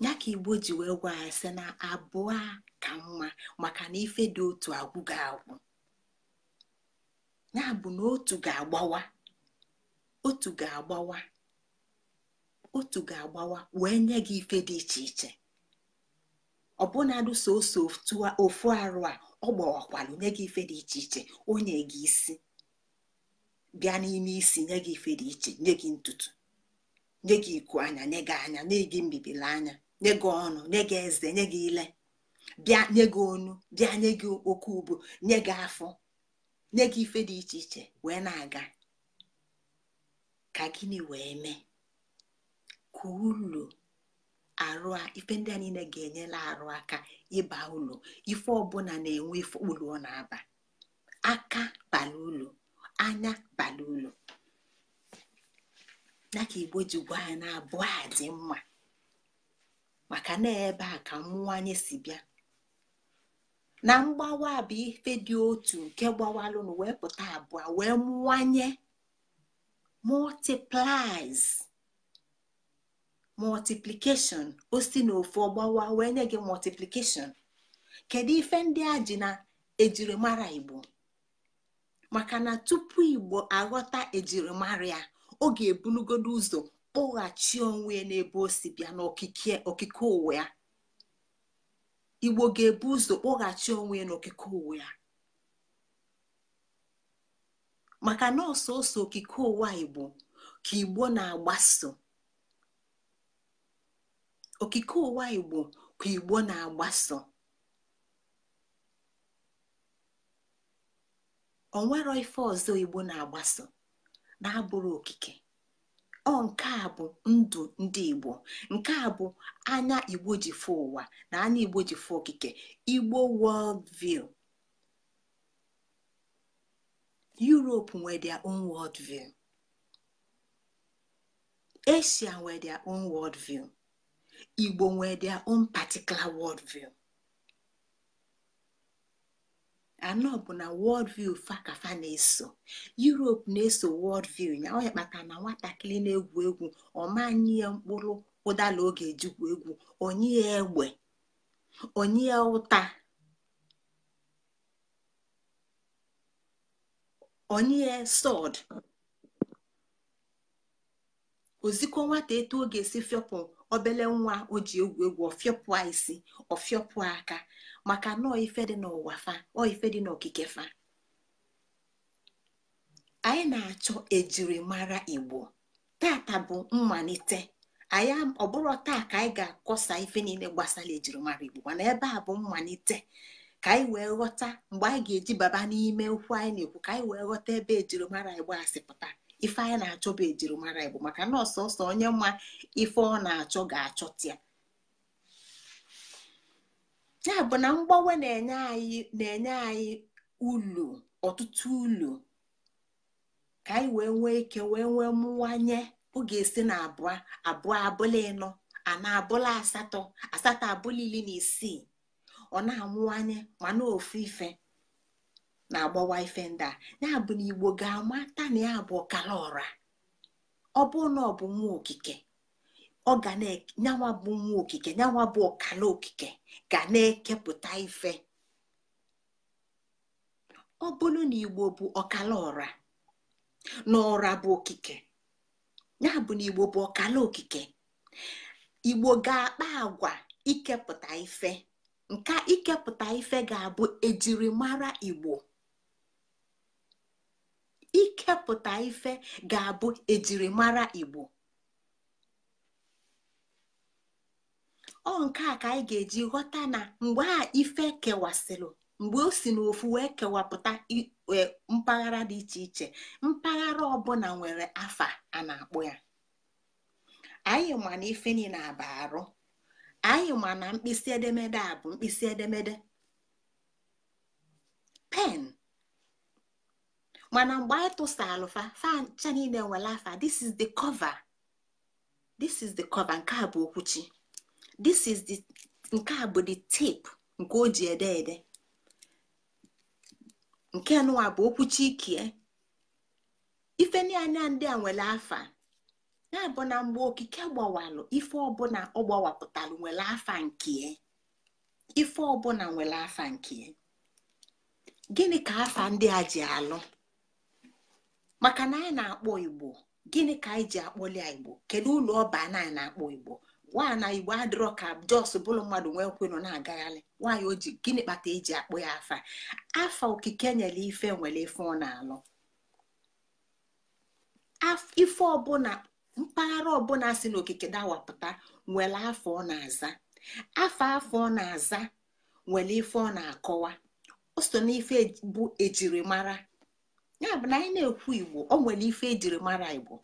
ya ka igbo ji wee gwa ya si na abụọ ka mma maka na ife dị otu agwụ ga-agwụ ya bụ na otu ga-agbawa otu ga-agbawa otu ga-agbawa wee nye gị ife dị iche iche ọbụnadụ soso ofu arụ a ọ gbawakwalụ nye gị ife dị iche iche onye gị isi bịa n'ime isi nye gị ife dị iche nye gị ntutu nye gị iku anya nye gị anya nye gị mbibili anya nye gị ọnụ nye gị eze nye gị ile bịa nye gị onu bịa nye gị oke ubu nye gị afọ nye gị ife dị iche iche wee na-aga ka gịnị wee mee ka ụlọ arụ ife ndị a niile ga-enyela arụ aka ịba ụlọ ife ọbụla na-enwe ife ụlọ ọ na-aba aka bala ụlọ anya bala ụlọ na ka igbo ji gwa ya na abụọ a dị mma maka na ebe a ka mmụwanye si bịa na mgbawa bụ ife dị otu nke gbawalụnụ wee pụta abụọ wee mụwanye multiplies multiplication o si ofu ọgbawa wee nye gị multiplication kedu ife ndị a ji na ejirimara igbo maka na tupu igbo aghọta ejirimara ya ọ ga-ebulugodo ụzọ kpọghachi onwe ya n'ebe o si bịa n'okike ụwa ya igbo ga-ebu ụzọ kpọghachi onwe ya n'okike ụwa ya maka na ọsọsọ okike ụwa igbo ka igbo na-agbaso okike ụwa igbo ka igbo na-agbaso onwero ife ọzọ igbo na-agbaso na-abụrụ okike ọ nke a bụ ndụ ndị igbo nke a bụ anya igbo ji fụ ụwa na anya igbo ji fụ okike igbo world view europe nwere their own world view asia nwere their own world view igbo nwere their particular world view. anọ bụ na world fakafa fa na-eso europe na-eso wọld ya ọ ya kpatara na nwatakịrị na-egwu egwu ọmanye ya mkpụrụ ụdala oge ejikwa egwu onye ya egbe onye ya ụta onye ya sọd ozikọ nwata eto ọ ga-esi fịọpụ obele nwa o ji egwu egwu ọfịọpụa isi ọfịọpụa aka maka nọọ ife dị n'ụwa fa ife dị n'okike fa anyị na-achọ ejirimara igbo tata bụ mmalite anyị ọbụrụ taa ka anyị ga-akọsa ife niile gbasara ejirimara igbo mana ebe a bụ mmalite ka anyị wee ghọta mgbe anyị ga-eji baba n'ime ụkwụ anyị na-ekwu ka anyị wee ghọta ebe ejirimara igbo asị pụta ife anyị na-achọ bụ ejirimara igbo maka na ọsọsọ onye mma ife ọ na-achọ ga-achọta ya ya bụ na mgbanwe na-enye anyị na ulu ọtụtụ ulu ka anyị wee nwee ike wee nwee mụwanye ọ ga-esi na abụọ abụọ abụla ịnọ ana na-abụla asatọ asatọ abụla ili na isii ọ na-amụwanye mana ofu ife na-agbawa ife ndị a ya bụ na igbo ga-amata na ya bụ ọkala ọra ọ bụrụ na ọ bụ nwa okike ọ ga na bụ nwa okike nyanwa bụ ọkala okike ga na-ekepụta ife ọ bụrụ na igbo bụ ọkala ọra na ọra bụ okike ya bụ na igbo bụ ọkala okike igbo ga-akpa agwa ikepụta ife nke ikepụta ife ga-abụ ejirimara igbo ikepụta ife ga-abụ ejirimara igbo ọ nke a ka anyị ga-eji ghọta na mgbe a ife kewasịrị mgbe o si n'ofu wee kewapụta e, mpaghara dị iche iche mpaghara ọbụla nwere afa a na akpụ ya anyị ma na ife niile aba arụ anyị ma na mkpịsị edemede a bụ mkpịsị edemede pen mana mgbe anyị tụsalụ fa fancha niile nwere afa this is the cover this is the cover nke a bụ okwuchi this is the nke a bụ the tape nke o ji ede ede nke nụwa bụ okwuchi ikie ife niile ndị a nwere afa ya bụ na mgbe okike gbawalụ ife ọbụla ọ gbawapụtalụ nwere afa nkie e. ife ọbụla nwere afa nkie e. gịnị ka afa ndị a ji alụ maka na anyị na-akpọ igbo gịnị ka anyị ji akpọli igbo kedu ụlọ ọba anyị na-akpọ igbo nwaana igbo adịrọ ka jos bụrụ mmadụ nwee nkwenụ na-agagharị nwaanyị oji gịnị kpata eji akpọ ya afa afa okike nyere ife nwere ife ọ na-alụ ife ọbụla mpaghara ọbụla si n'okike dawapụta nwere afọ ọ na-aza afa afọ ọ na-aza nwere ife ọ na-akọwa o so ife e, bụ ejirimara ya bụ na anyị na-ekwu igbo ọ nwere ife ejiri mara igbo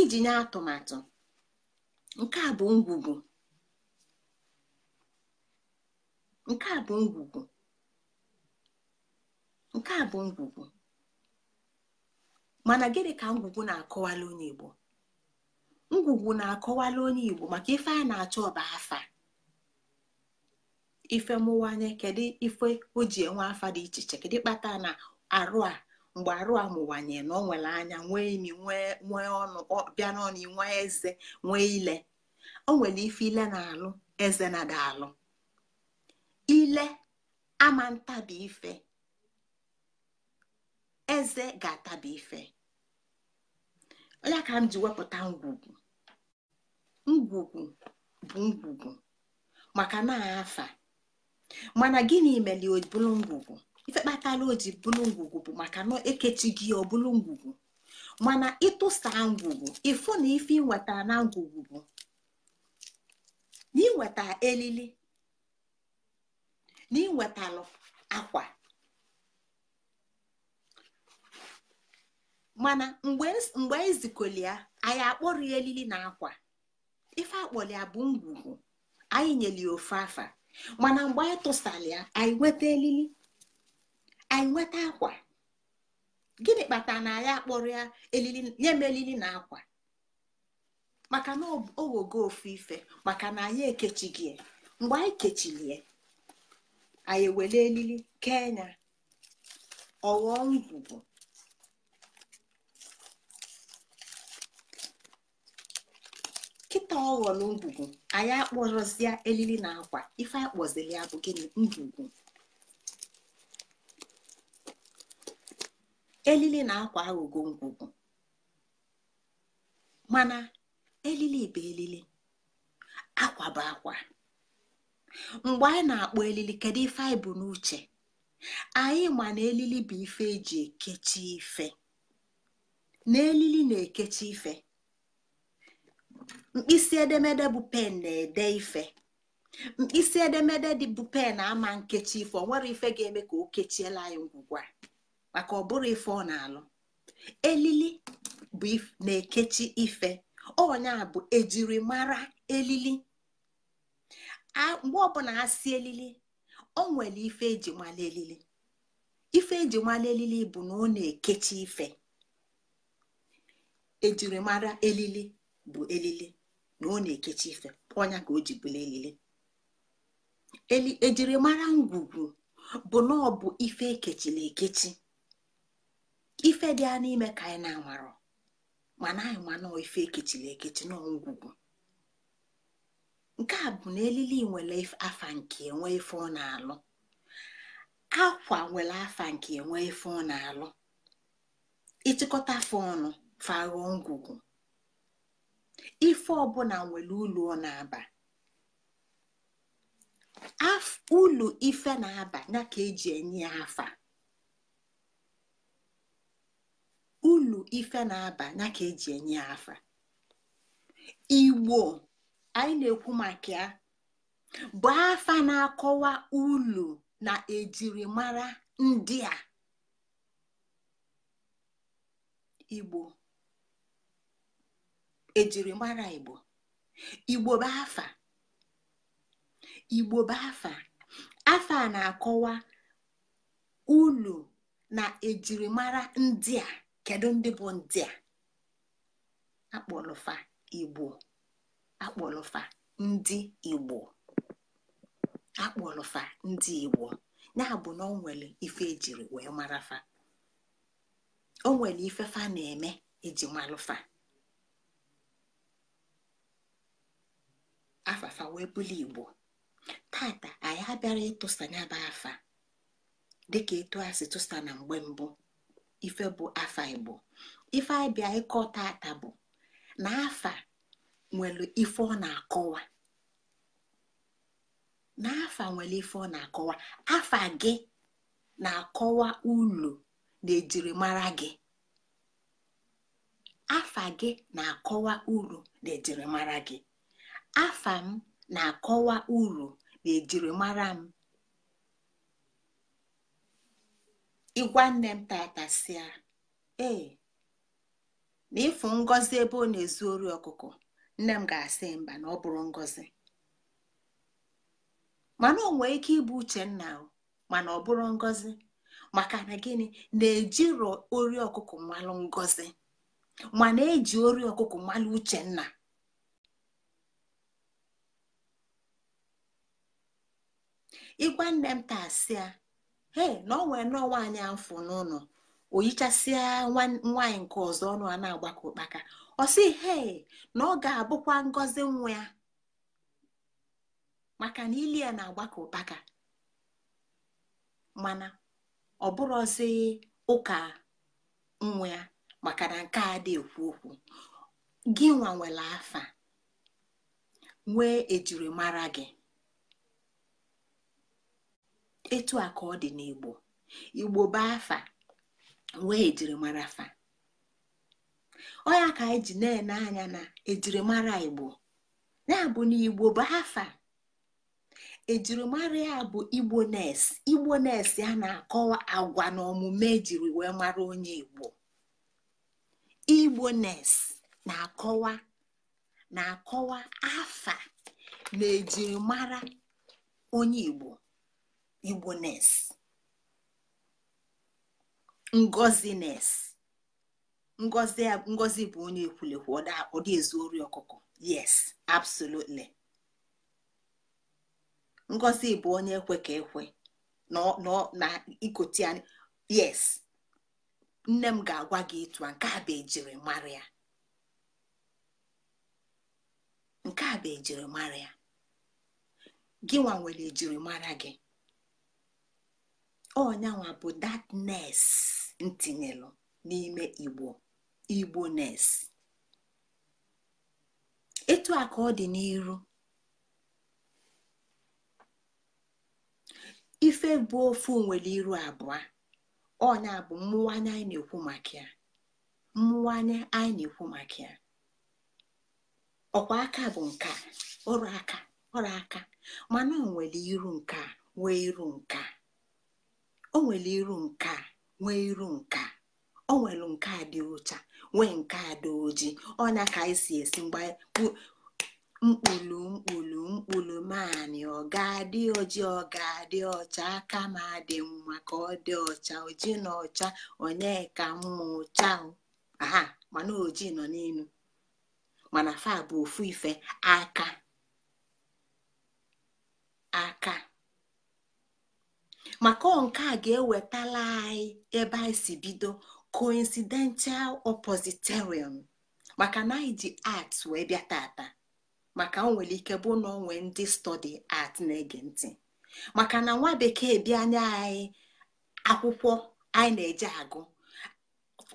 iji nye atụmatụ nke a bụ ngwugwu nke a bụ ngwugwu nke a bụ ngwugwu mana gịnị ka ngwugwu na-akọwala onye igbo ngwugwu na-akọwala onye igbo maka ife a na-achọ ọba afa ife mụwanye kedu ife o ji enwe afa dị iche iche kedu kpata na arụ a mgbe arụ amụwanye na ọ nwere anya nwee imi nwee ọnụ bịa n'ọnụ nwee eze nwee ile o nwere ife ile na-alụ eze na alụ ile ama ntabi ife eze ga-atabi ife onye ka m ji wepụta ngwugwu ngwugwu bụ ngwugwu maka na afa mana gịnị mere o bụrụ ngwugwu ife kpatara o ji bụrụ ngwugwu bụ maka na ekechighị gị ọ bụrụ ngwugwu mana ịtụsa ngwugwu ịfụ na ife ịnweta na ngwugwu bụ elili na ịwetalụ akwa mana mgbe ezikọli e ya anyị akpọrọ ya elili na akwa ife akpọrọ ya bụ ngwugwu anyị ya ofe afa mana mgbe anyị tụsara ya anyị nweta elili anyị nweta akwa gịnị kpatara na ya akpọrọ ya nye m elili na akwa maka na owogo ofu ife maka na anyị ekechighị mgbe anyị ya anyị ewere elili kenya ọghọ ngwugwu kịta ọghọrọ ngwugwu anyị akpọrọzie elili na akwa ife akpọziri ya bụ gịnị ngwugwu elili na-akwa aghụghọ ngwugwu mana elili bụ elili akwa bụ akwa mgbe anyị na-akpọ elili kedu ife anyị bụ n'uche anyị ma na elili bụ ife eji ekechi ife na elili na-ekechi ife mkpịsị edemede bụ pen na-ede ife mkpịsị edemede dị bụ pen ama nkechi ife ọ nwere ife ga-eme ka o kechiela anyị ngwugwa maka ọ bụrụ ife ọ na-alụ elili bụ na-ekechi ife ọnya bụ ejirimara elili mgbe ọbụla a si elili o nwere ife eji mala elili ife eji mala elili bụ na ọ na-ekechi ife ejirimara elili bụ elili na ọ na-ekechi ife ọnya ka o ji bụla elili ejirimara ngwugwu bụ na ọ bụ ife ekechila ekechi ife dị a n'ime ka anyị na anwarọ mana anyị mana ife ekechiri ekechi n'ọgwụgwụ nke a bụ na elili nwere afa nke enwe ife ọ na-alụ akwa nwere afa nke enwe ife ọ na-alụ ịchịkọta afọ ọnụ fagho ngwugwu ife ọbụla nwere ụlọ ọ na-aba ụlọ ife na-aba ya ka eji enye ya afa ulu ife na-aba ya ka eji enye ya afa igbo anyị na-ekwu maka ya bụ afa na-akọwa ulu na ejirimara ndị a igbo ejirimara igbo igbo bụ afa igbo bụ afa afa na-akọwa ulu na ejirimara ndị a kedu ndị bụ ndị a akpọlụfa igbo akpọlụfa ndị igbo akpọlụfa ndị igbo ya na o nwere ife ejiri wee mara fa o nwere ife fa na-eme eji malụfa afafa wee bụlụ igbo tata anyị abịara ịtụsa nyaba afa dịka etu a si tụsa na mgbe mbụ ife bụ afa igbo ife abịa ịkọta ata bụ na afa nwere ife ọ na-akọwa N'afa nwere ife ọ na-akọwa afa gị na-akọwa ulu na ejirimara gị afa gị na-akọwa uru na ejirimara gị afa m na-akọwa uru na ejirimara m ịgwa nne m tata sia, ee na ịfụ ngọzi ebe ọ na-ezu ori ọkụkọ nne m ga-asị mba na ọ bụrụ ngọzi mana ọ nwee ike ịbụ uchenna mana ọ bụrụ ngọzi maka na gịnị na-ejiro ori ọkụkọ mmalụ ngọzi mana eji ori ọkụkọ mmalụ uchenna ịgwa nne m taa sịa ee na ọnwee n'ọnwa anyị afụ n'ụlọ o yichasịa nwaanyị nke ọzọ ọnụ a na-agbakọ ụkpaka ọ sị hee na ọ ga-abụkwa ngozi nwa ya maka na ili ya na-agbakọ ụkpaka mana ọ bụrụzi ụka nwa ya maka na nke a dị ekwu okwu gị nwa afa nwee ejirimara gị etu a ọ dị n'igbo igbo bụ afa wee jirimara afa ọya ka anyị ji na-ene anya na ejirimara igbo ya bụ na igbo bụ afa ejirimara ya bụ igbo nes igbo nes ya na-akọwa agwa na omume ejiri wee mara onye igbo igbo nes na-akọwa na-akọwa afa na ejirimara onye igbo igbones ngozines ngozi bụ onye ekwulekwu dị ezu ori ọkụkọ yes absolutely ngozi bụ onye ekwe ka ekwe na ikoti anyị yes nne m ga-agwa gị ịtụ a nke a bụ ejiri ya nke a bụ ejirimara ya gịnwa nwere ejirimara gị ọnyanwa bụ datnes ntinyelụ n'ime igbo igbo nes etu a ka ọ dị n'iru ife bụ ofu nwere iru abụọ ọnya bụ mmụwanye anyị na-ekwu maka ya mmụwanye anyị na-ekwu maka ya ọkwa aka bụ nke ọrụ aka ọrụ aka mana o nwere iru nke a nwee iru nke a o nwere iru nke a nwee iru nke a o nke a dị ụcha nwee nke a dị ojii ọnya ka anyị e si esi mgbe mkpụlụ mkpụlụ mkpụlụ maanị ọ ga-adị oji ọ ga-adị ọcha aka ma dị mma ka ọ dị ọcha ojii na ọcha onye ka mma ọcha aha mana ojii nọ n'elu mana fa bụ ofu ife aka aka maka nke a ga-ewetala anyị ebe anyị si bido coincidental oppositorium maka na anyị ji art wee bịa tata maka o nwere ike bụ na onwe ndị stọdi art na-ege ntị maka na nwa bekee bịa anya anyị akwụkwọ anyị na-eje agụ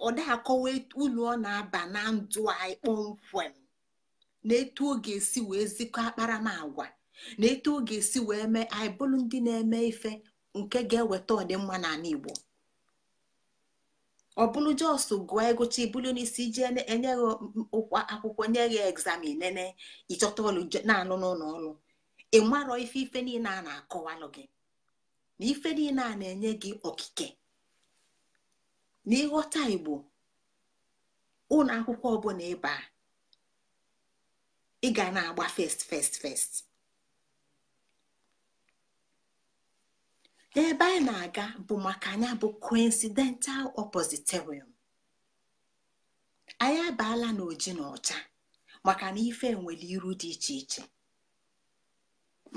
ọda akọwa ulu ọ na-aba na ndụ anyị kpọmkwem na etu ọ ga-esi wee zikọ akparamagwa na etu ọ ga-esi wee mee anyị bụrụ ndị na-eme ife nke ga-eweta ọdịmma n'ala Igbo ọ bụrụ jos gụọ egụcha ibulu n'isi iji enyeghị ụkwa akwụkwọ nye gị egzamin nene ịchọta ọlụ na anụ n'ụlọ ọrụ ị marọ ife ife niile a na-akọwalụ gị na ife niile a na-enye gị okike na ịghọta Igbo ụlọ akwụkwọ ọbụla ịba ị ga na-agba fest fest fest ebe anyị na-aga bụ maka anya bụ coincidental oppositorium anyị abaala n'oji na ọcha maka na ife nwere iru dị iche iche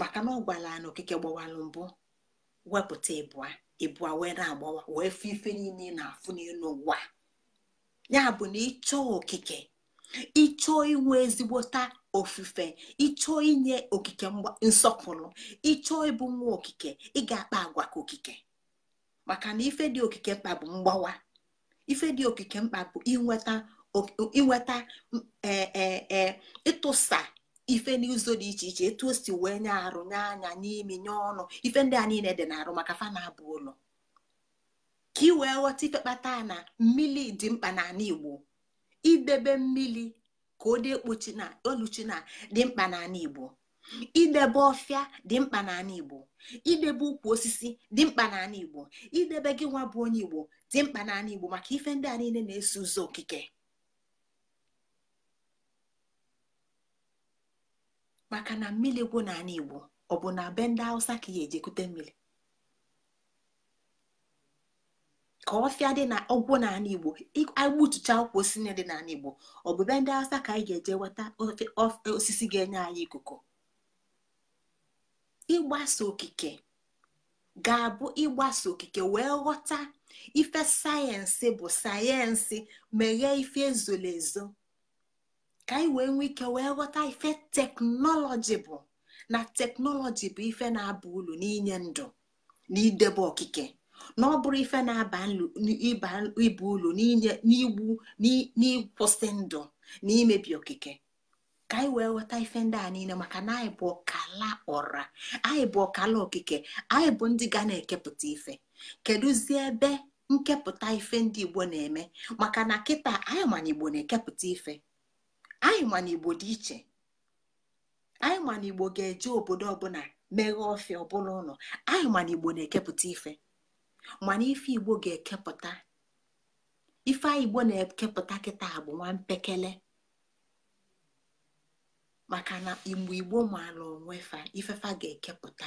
maka na ọ gwara na okike gbawalụ mbụ wepụta ịbụa ịbụa wee na-agbawa wee fụ ife niile na-afụ n'elu ụwa ya bụ na ịchọọ okike ịchọọ inwe ezigbota ofufe ịchọọ inye okike nsọpụrụ ịchọọ ịbụ nwa okike ị ga-akpa agwa ka okike maka na ife dị okike mkpa bụ mgbawa ife dị okike mkpa bụ inweta inweta e, e, e, ịtụsa ife n'ụzọ dị iche iche etu o si wee nye arụ nye anya n'imi nye ọnụ ife ndị a niile dị n'arụ maka fa na-abụ ụlọ ka i wee ghọta ife na mmiri dị mkpa n'ala Igbo idebe mmiri ka ọ dị na oluchi na dị mkpa n'ala Igbo idebe ọfịa dị mkpa n'ala Igbo idebe ukwu osisi dị mkpa n'ala Igbo idebe gị nwa bụ onye Igbo dị mkpa n'ala Igbo maka ife ndị a niile na-eso ụzọ okike maka na mmiri gwụ n'ala Igbo ọ bụ na be ndị Hausa ka ya ejekute mmiri ka ọfịa dị na ọgwụ n'ala igbo igbutucha akwụkwọ osisi dị n'ala igbo ọbụbe ndị asa ka anyị ga-eje nweta osisi ga-enye anyị ikuku ịgbasa okike ga-abụ ịgbasa okike wee ghọta ife sayensị bụ sayensị meghee ife ezoro ezo ka anyị wee nwee ike wee ghọta ife teknọlọji bụ na teknọlọji bụ ife na-aba ulu n'inye ndụ na idebe okike na ọ bụrụ ife na-aba ụlọ ulu n'igbu n'ịkwụsị ndụ na imebi okike ka anyị wee ghọta ife ndị a niile maka na anyị bụ ọkala ọra anyị bụ ọkala okike anyị bụ ndị ga na-ekepụta ife kedụzi ebe nkepụta ife ndị igbo na-eme maka na kịta anyị mana igbo na-ekepụta ife anyị mana igbo dị iche anyị mana igbo ga-eje obodo ọbụla meghee ọfịa ọbụla ụlọ anyị mana igbo na-ekepụta ife mana ife igbo ga-ekepụta ife igbo na-ekepụta kịta bụ nwa mpekele maka na igbo igbo maala onwe fa ifefa ga-ekepụta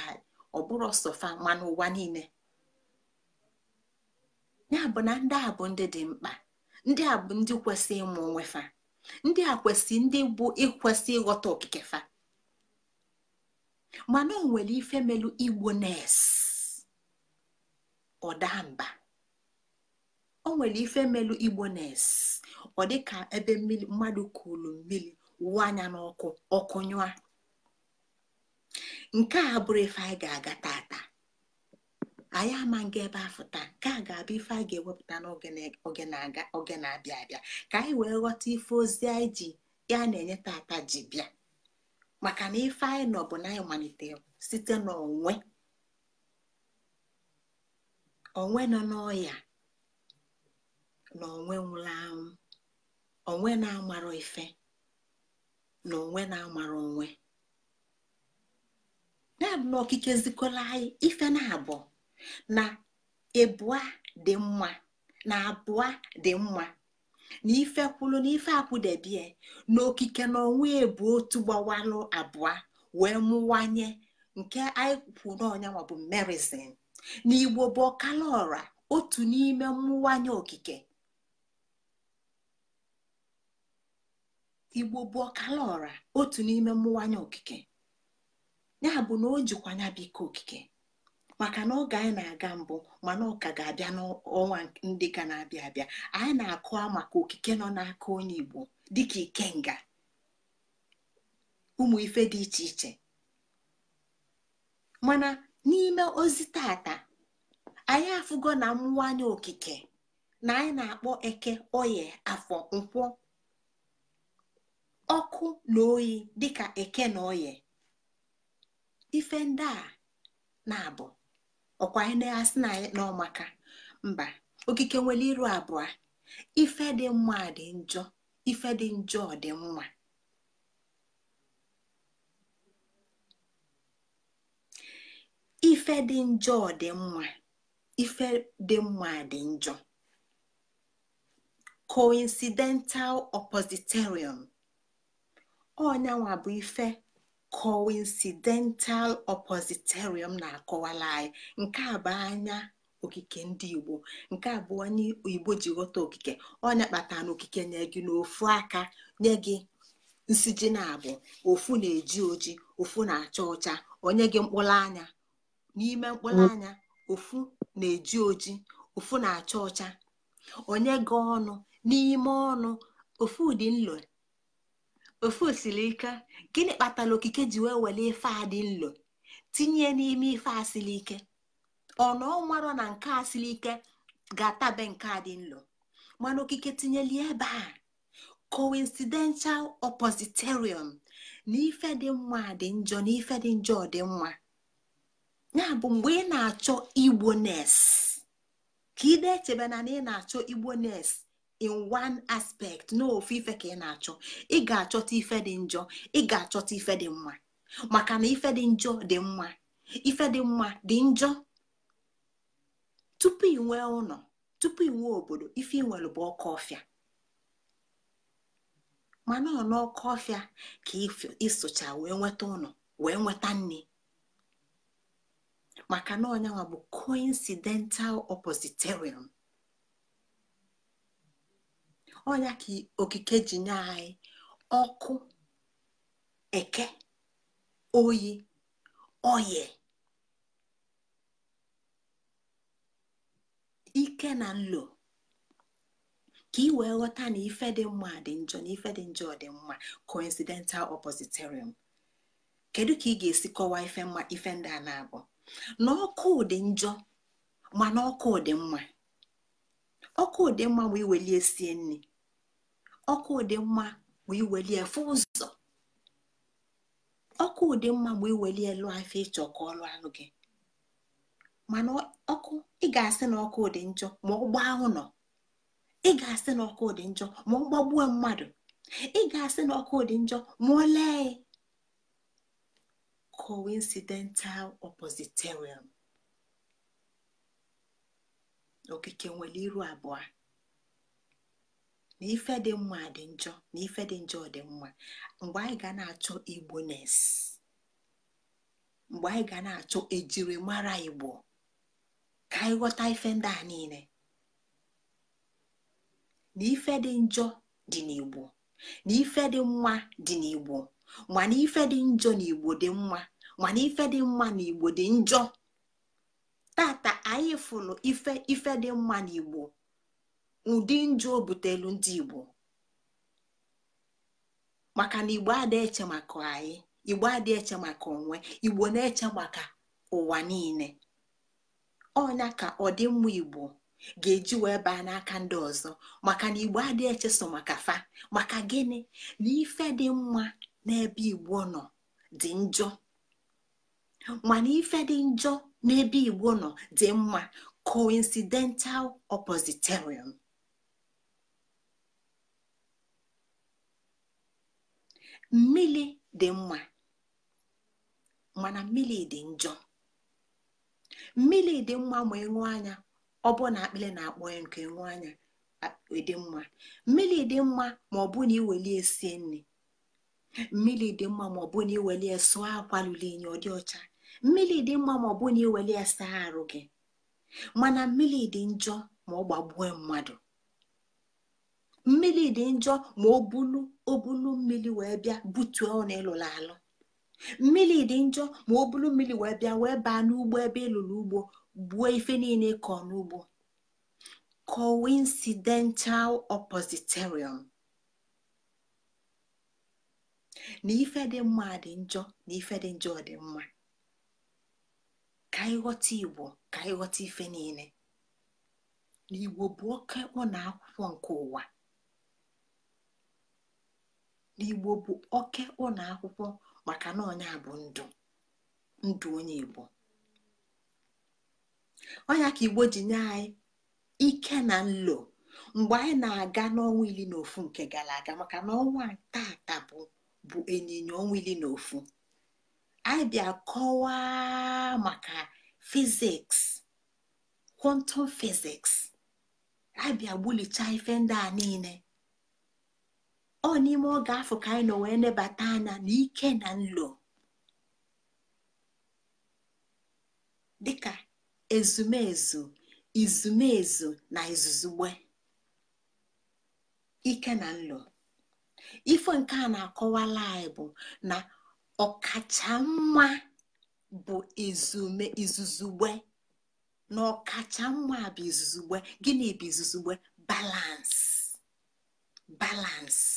ọ bụrụ ọsọfa ma n'ụwa niile ya bụ na ndị a bụ ndị dị mkpa ndị a bụ ndị kwesị ịmụ onwe fa ndị a kwesị ndị bụ ịkwesị ịghọta okike fa mana o nwere ife melu igbo nurse. ọ daa mba o nwere ife melu igbo nes ọ dịka ebe mmiri mmadụ kụrụ mmiri wụọ anya n'ọkụ ọkụ nyụa nke a bụrụ ife anyị ga-aga tata anyị ama nga ebe afọ taa nke a ga-abụ ife anyị ga-ewepụta n'oge na-abịa abịa ka anyị wee ghọta ife ozi anyị ji ya na-enye tata ji bịa maka na ife anyị nọ bụ na anyị malitere site n'onwe onwe nọ n'ọya na onwe nwụrụ anwụ onwe na-amara ife na onwe na-amara onwe na-abụ na okike zikola anyị ife na-abụ na abụọ dị mma na abụọ dị mma na ife kwulu na ife akwụdebie na okike na onwe ebu otu gbawalụ abụọ wee mụwanye nke anyị kwu n'ọnyanwa bụ merizin n'igbo ọkala otu n'ime mmụwanye okike igbo bụ ọkala ọra otu n'ime mmụwanye okike ya bụ na o jikwa ya okike maka na oge anyị na-aga mbụ mana ọka ga-abịa n'ọnwa ndị ga na-abịa abịa anyị na akụwa maka okike nọ n'aka onye igbo dịka ikenga ụmụ ife dị iche iche mana n'ime ozi tata anyị afụgo na mwanye okike na anyị na-akpọ eke oye afọ nkwọ ọkụ na oyi dịka eke na oye ife ndị a na-abụ ọkwa anyị na-asị na anyị n'ọmaka mba okike nwere iru abụọ ife dị mma dị njọ ife dị njọ dị mma ife dị njọ dị mma ife dị mma dị njọ coincidental oppositarium onyanwa bụ ife coincidental oppositarium na-akọwala anyị nke a bụ anya okike ndị igbo nke a bụ onye igbo ji ghọta okike onya kpatara na okike nye gị n'ofu aka nye gị nsiji na abụ ofu na-eji oji ofu na-acha ọcha onye gị mkpụrụ anya n'ime mkpụrụ mm. anya ofu na-eji oji ofu na-acha ọcha onye ga ọnụ n'ime ọnụ ofu dị nlo ofu osilike ike gịnị kpatara okike ji wee were ife a dị nlo tinye n'ime ife a siri ike ọnụ ọmarọ na nke a siri ike ga-atabe nke a dị nlo mana okike tinyeli ebe a coincidental oppositerium na ife dị mma dị njọ na ife dị njọ dị mma ya bụ mgbe ị na-achọ igbones ka ị na-echebe na na ị na-achọ igbones in one aspect n'ofe ife ka ị na-achọ ị ga-achọta ife dị njọ ị ga-achọta ife dị mma maka na ife dị njọ dị mma ife dị mma dị njọ tupu inwe ụlọ tupu inwe obodo ife inwere bụ ọkụ ọfịa mana ọ n'ọkụ ọfịa ka ịsụcha wee nweta ụlọ wee nweta nri maka na ọnyanwa bụ coincidental oppositerium ọnya ka okike ji nye anyị ọkụ eke oyi oye ike na nlo ka ị wee ghọta na ife dị mma dị njọ na ife dị njọ dị mma coincidental oppositerium kedu ka ị ga-esi kọwaa ife mma ife ndị a na-abụ na ọkụ dị njọ mana ọkụ dị mma ọkụ dị mma bụ iweli sie nri ọkụ dị mma bụ iweli fụ ụzọ ọkụ dị mma bụ iwelie lụọ afọ ịchọ ka ọ lụọ gị mana ọkụ ị ga-asị na ọkụ dị njọ ma ọ gbaa nọ, ị ga-asị na ọkụ dị njọ ma ọ gbagbuo mmadụ ị ga-asị na ọkụ dị njọ ma ọ lee coincidental oppositorium okike nwere iru abụọ na ife dị mma dị njọ na ife dị njọ dị mma mgbe anyị ga na-achọ igbones mgbe anyị ga na-achọ ejirimara igbo ka anyị e ghọta ife e ndị a niile na ife dị njọ dị n'igbo na ife dị mma dị n'igbo mana ife dị njọ na igbo dị mma mana ife dị mma na igbo dị njọ tata anyị fụlụ ife ife dị mma na igbo ụdị njọ obutelu butelu ndị igbo maka na igbo adịghị eche maka anyị igbo adịghị eche maka onwe igbo na-eche maka ụwa niile ọnya ka ọdịmma igbo ga-eji wee baa n'aka ndị ọzọ maka na igbo adịghị eche so maka fa maka gịnị na ife dị mma n'ebe igbo nọ dị njọ mana ife dị njọ n'ebe igbo nọ dị mma coincidental oppositorium mmiri dị mma mana mmiri dị njọ mmiri dị mma ma ịṅụ anya ọ bụ na akpịrị na-akpọ ya nke ịṅụ anya e dị mma mmiri dị mma ma ọ bụ na iweli esie nri mmiri dị mma ma ọ bụ na iweli ya sụọ akwa lụrụ inyi ọ dị ọcha mmiri dị mma ma ọ bụ na iweli ya saa arụ gị mana mmiri dị njọ ma ọ gbagbuo mmadụ mmiri dị njọ ma ọ bulu obulu mmiri wee bịa butuo ọ na alụ mmiri dị njọ ma ọ bulu mmiri wee bịa wee baa n'ugbo ebe ịlụrụ ugbo gbuo ife niile kọọ n'ugbo coincidental oppositorium na ife dị mma dị njọ na ife dị njọ dị mma ka ịghọta igbo ka ghọta ife niile na igbo bụ oke ụlọ akwụkwọ nke ụwa na igbo bụ oke ụlọ akwụkwọ maka na ọnya bụ ndụ ndụ onye igbo ọnya ka igbo ji nye anyị ike na nlo mgbe anyị na-aga n'ọnwa iri na ofu nke gara aga maka na ọnwa taata bụ bụ ịnyịnya onwili na ofu anyị kọwaa maka fiziks kwọntọm fiziks anyị gbulicha ife ndị a niile ọ n'ime oge afọ ka anyị nọ wee nebata anya na ike na nlo dịka ezumezu izumezu na izuzugbe ike na nlo ife nke a na-akọwala anyị bụ na ọkacha mma bụ izume izuzugbe na ọkacha mma bụ izuzugbe gịnị bụ izuzugbe balansi balansi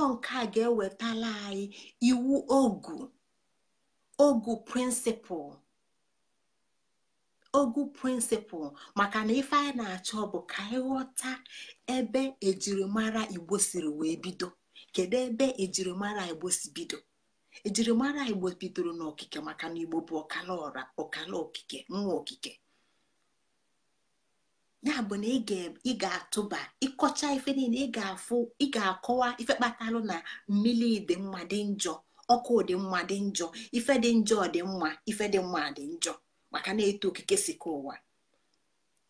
ọ nke a ga-ewetala anyị iwu ogu ogu prịnsịpụl ogu prịnsịpụl maka na ife anyị na-achọ bụ ka anyị ebe ejirimara igbo siri wee bido kedu ebe ejirimara igbo si bido ejirimara igbo bidoro n'okike maka na igbo bụ ọkala ọra ọkala okike nwa okike ya bụ na ị ga-atụba ịkọcha ife niile ị ga-akọwa ife kpatalụ na mmiri dị mma dị njọ ọkụ dị mma dị njọ ife dị njọ dị mma ife dị mma dị njọ maka na-eto okike sika ụwa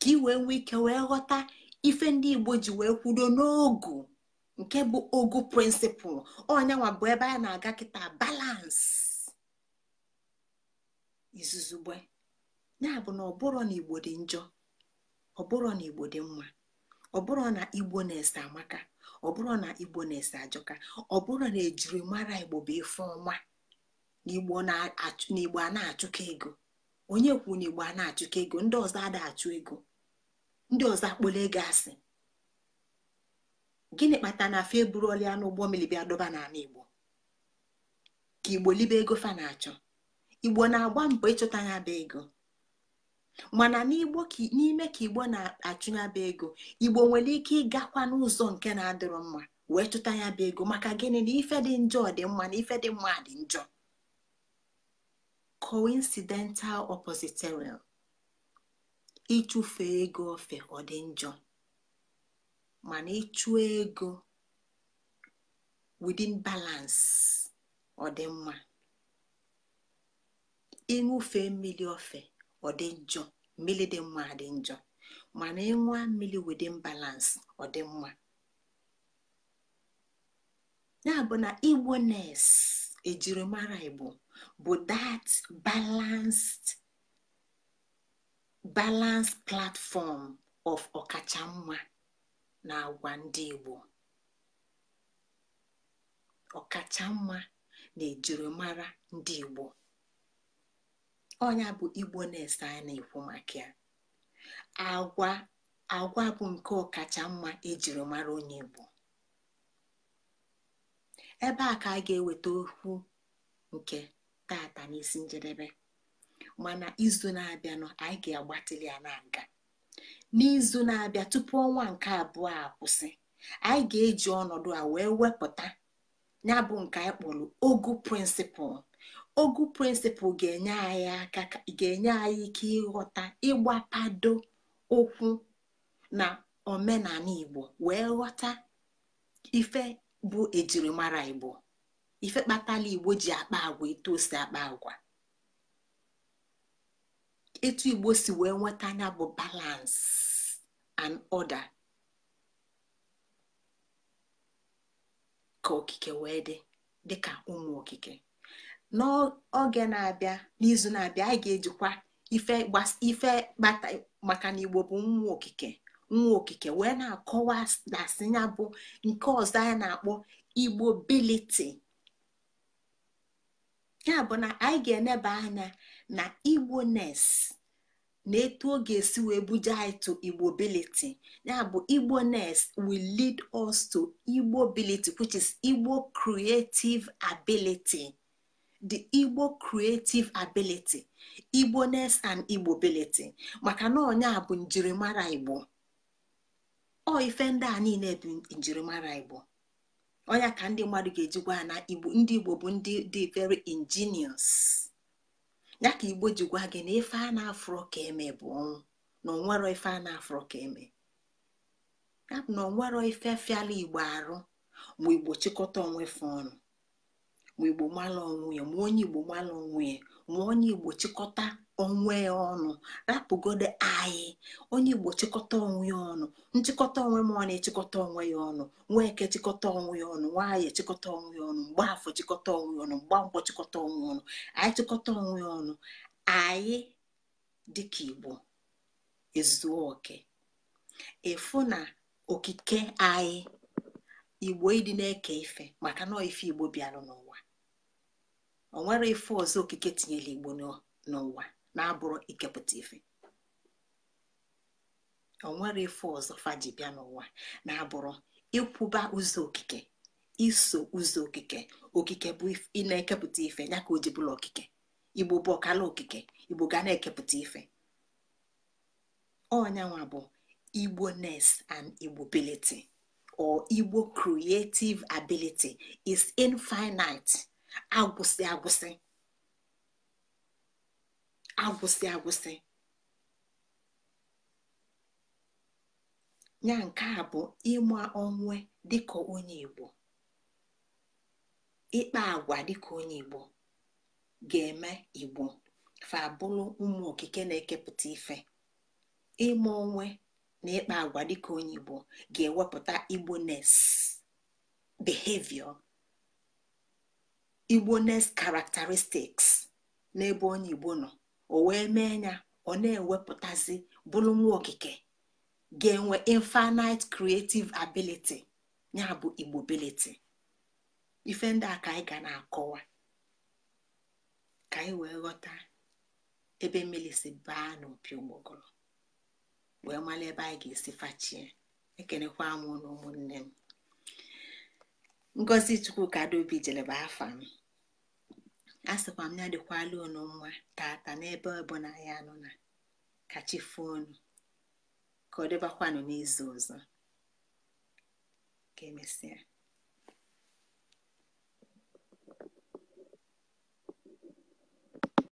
ka ị wee nwee ike wee ghọta ife ndị igbo ji wee kwudo n'ogu nke bụ ogu prịnsịpụl ọnyanwa bụ ebe a na-aga kịta balansị izuzugbe ya bụ na ọbụrụ na igbo dị njọ ọbụrụ na igbo dị mma ọbụrụ na igbo na-ese amaka ọbụrụ na igbo na-ese ajọka ọbụrụ na ejirimara igbo bụ ife ọma na igbo a na-achụkọ ego onye kwuru na igbo a na-achụkọ ego ndị ọzọ adịghị achụ ego ndị ọzọ akpọla ego asị gịnị kpatara na fa eburuola ya n'ụgbọ mmiri bịa dọba n'ala igbo ka igbo libe ego fa na-achọ igbo na-agba mbọ ịchọta ya bụ ego mana n'ime ka igbo na-achụ ya bụ ego igbo nwere ike ịgakwa n'ụzọ nke na-adịrọ mma wee chụta ya bụ ego maka gịnị na ife dị njọ dị mma na ife dị mma dị njọ coincidental oppositorial ịchụfe ego ofe ọ dị njọ mana ịchụ ego within balance ọ dị mma ịṅụfe mmiri ofe ọ dị njọ mmiri dị mma dị njọ mana ịṅụa mmiri within balance ọ dị mma ya bụ na igbo nes ejirimara igbo bụ that balanced balanced platform of ọkacha mma na agwa ndị Igbo ọkacha mma na ejirimara ndị Igbo ọnya bụ Igbo na-ese anyị na-ekwu maka ya agwa agwa bụ nke ọkacha mma ejirimara onye Igbo ebe a ka a ga-eweta okwu nke tata n'isi njedebe mana izu na-abịanụ anyị ga-agbatịli ya na nga n'izu na-abịa tupu ọnwa nke abụọ a kwụsị anyị ga-eji ọnọdụ a wee wepụta ya bụ nke anyị kpọrọ ogu prịnsịpụl ogu prịnsịpụl ga-enye anyị aka ga-enye anyị ike ịghọta ịgbapado okwu na omenala igbo wee ghọta ife bụ ejirimara igbo ife kpataala igbo ji akpa agwa etu o akpa agwa etu igbo si wee nweta anya bụ balance and order ka okike wee dị dịka ụmụ okike n'oge na-abịa n'izu na-abịa anyị ga-ejikwa ife ife kpata maka na igbo bụ nwa okike nwa okike wee na-akọwa dasị ya bụ nke ọzọ anyị na-akpọ igbo biliti ya bụ na anyị ga-eneba anya na igbones na etu ọ ga-esi wee buje anyị to igbobility ya bụ igbones will lead us to igbobility which is igbo creative ability the igbo creative ability igbones and igbobility maka na ọnya bụ njirimara igbo ọ ife ndị a niile bụ njirimara igbo onya ka ndị mmadụ ga-eji gwa na igbo ndị igbo bụ ndị dị very ingenious ya ka igbo ji gwa gị na ife a na-afụrọ ka eme bụ ọnwụ na onwero ife a na-afụrọ ka eme ya bụ na onwero ife fiala igbo arụ ma igbo chịkọta onwe fe ọnụ ma igbo mala onwe ya ma onye igbo mala onwe ya ma onye igbo chịkọta onwe ya ọnụ rapụgodo anyị onye igbo chịkọta onwe ya ọnụ nchịkọta onwe m ọ na-echịkọta onwe ya ọnụ nwaeke chịkọta onwe ya ọnụ nwaanyị chịkọta onwe ya ọnụ mgbaafọ chịkọta onwe ya ọnụ mgbankwọ chịkọta onwe ya ọnụ anyị chịkọta onwe ya ọnụ anyị dịka igbo ezuoke oke efu na okike anyị igbo ịdị na-eke ife maka na ife igbo bịara n'ụwa o nwere ife ọzọ okike tinyere igbo n'ụwa na-abụrụ ikepụta ife nwere ife ọzọ faji bịa n'ụwa na-abụrụ ịkwụba ụzọ okike iso ụzọ okike okike bụ ị na-ekepụta ife ya ka o ji bụla okike igbo bụ ọkala okike igbo ga na-ekepụta ife ọnyanwa bụ igbo nes and igbo or igbo creative ability is infinite agwụsị agwụsị agwụsị agwụsị ya nke a bụ ịma onwe dịka onye Igbo ịkpa agwa dịka onye Igbo ga-eme Igbo fa bụrụ ụmụ okike na-ekepụta ife ịma onwe na ịkpa agwa dịka onye Igbo ga-ewepụta igbo behavior igbo n'ebe onye Igbo nọ o wee mee ya ọ na-ewepụtazi bụrụ nwa okike ga-enwe infinite creative ability ya bụ igbobility ife ndị a ka anyị ga na-akọwa ka anyị wee ghọta ebe mmiri si baa n'opi ụgbọgọrọ wee mara ebe anyị ga-esi fachie ekenekwa m na ụmụnne m ngozi chukwu ka adaobi afa m a sịkwa m ya dịkwala unu mma tata n'ebe ọbụla ya nọ na kachifuo unu ka ọ dịbakwanụ n'izu ọzọ ka emesịa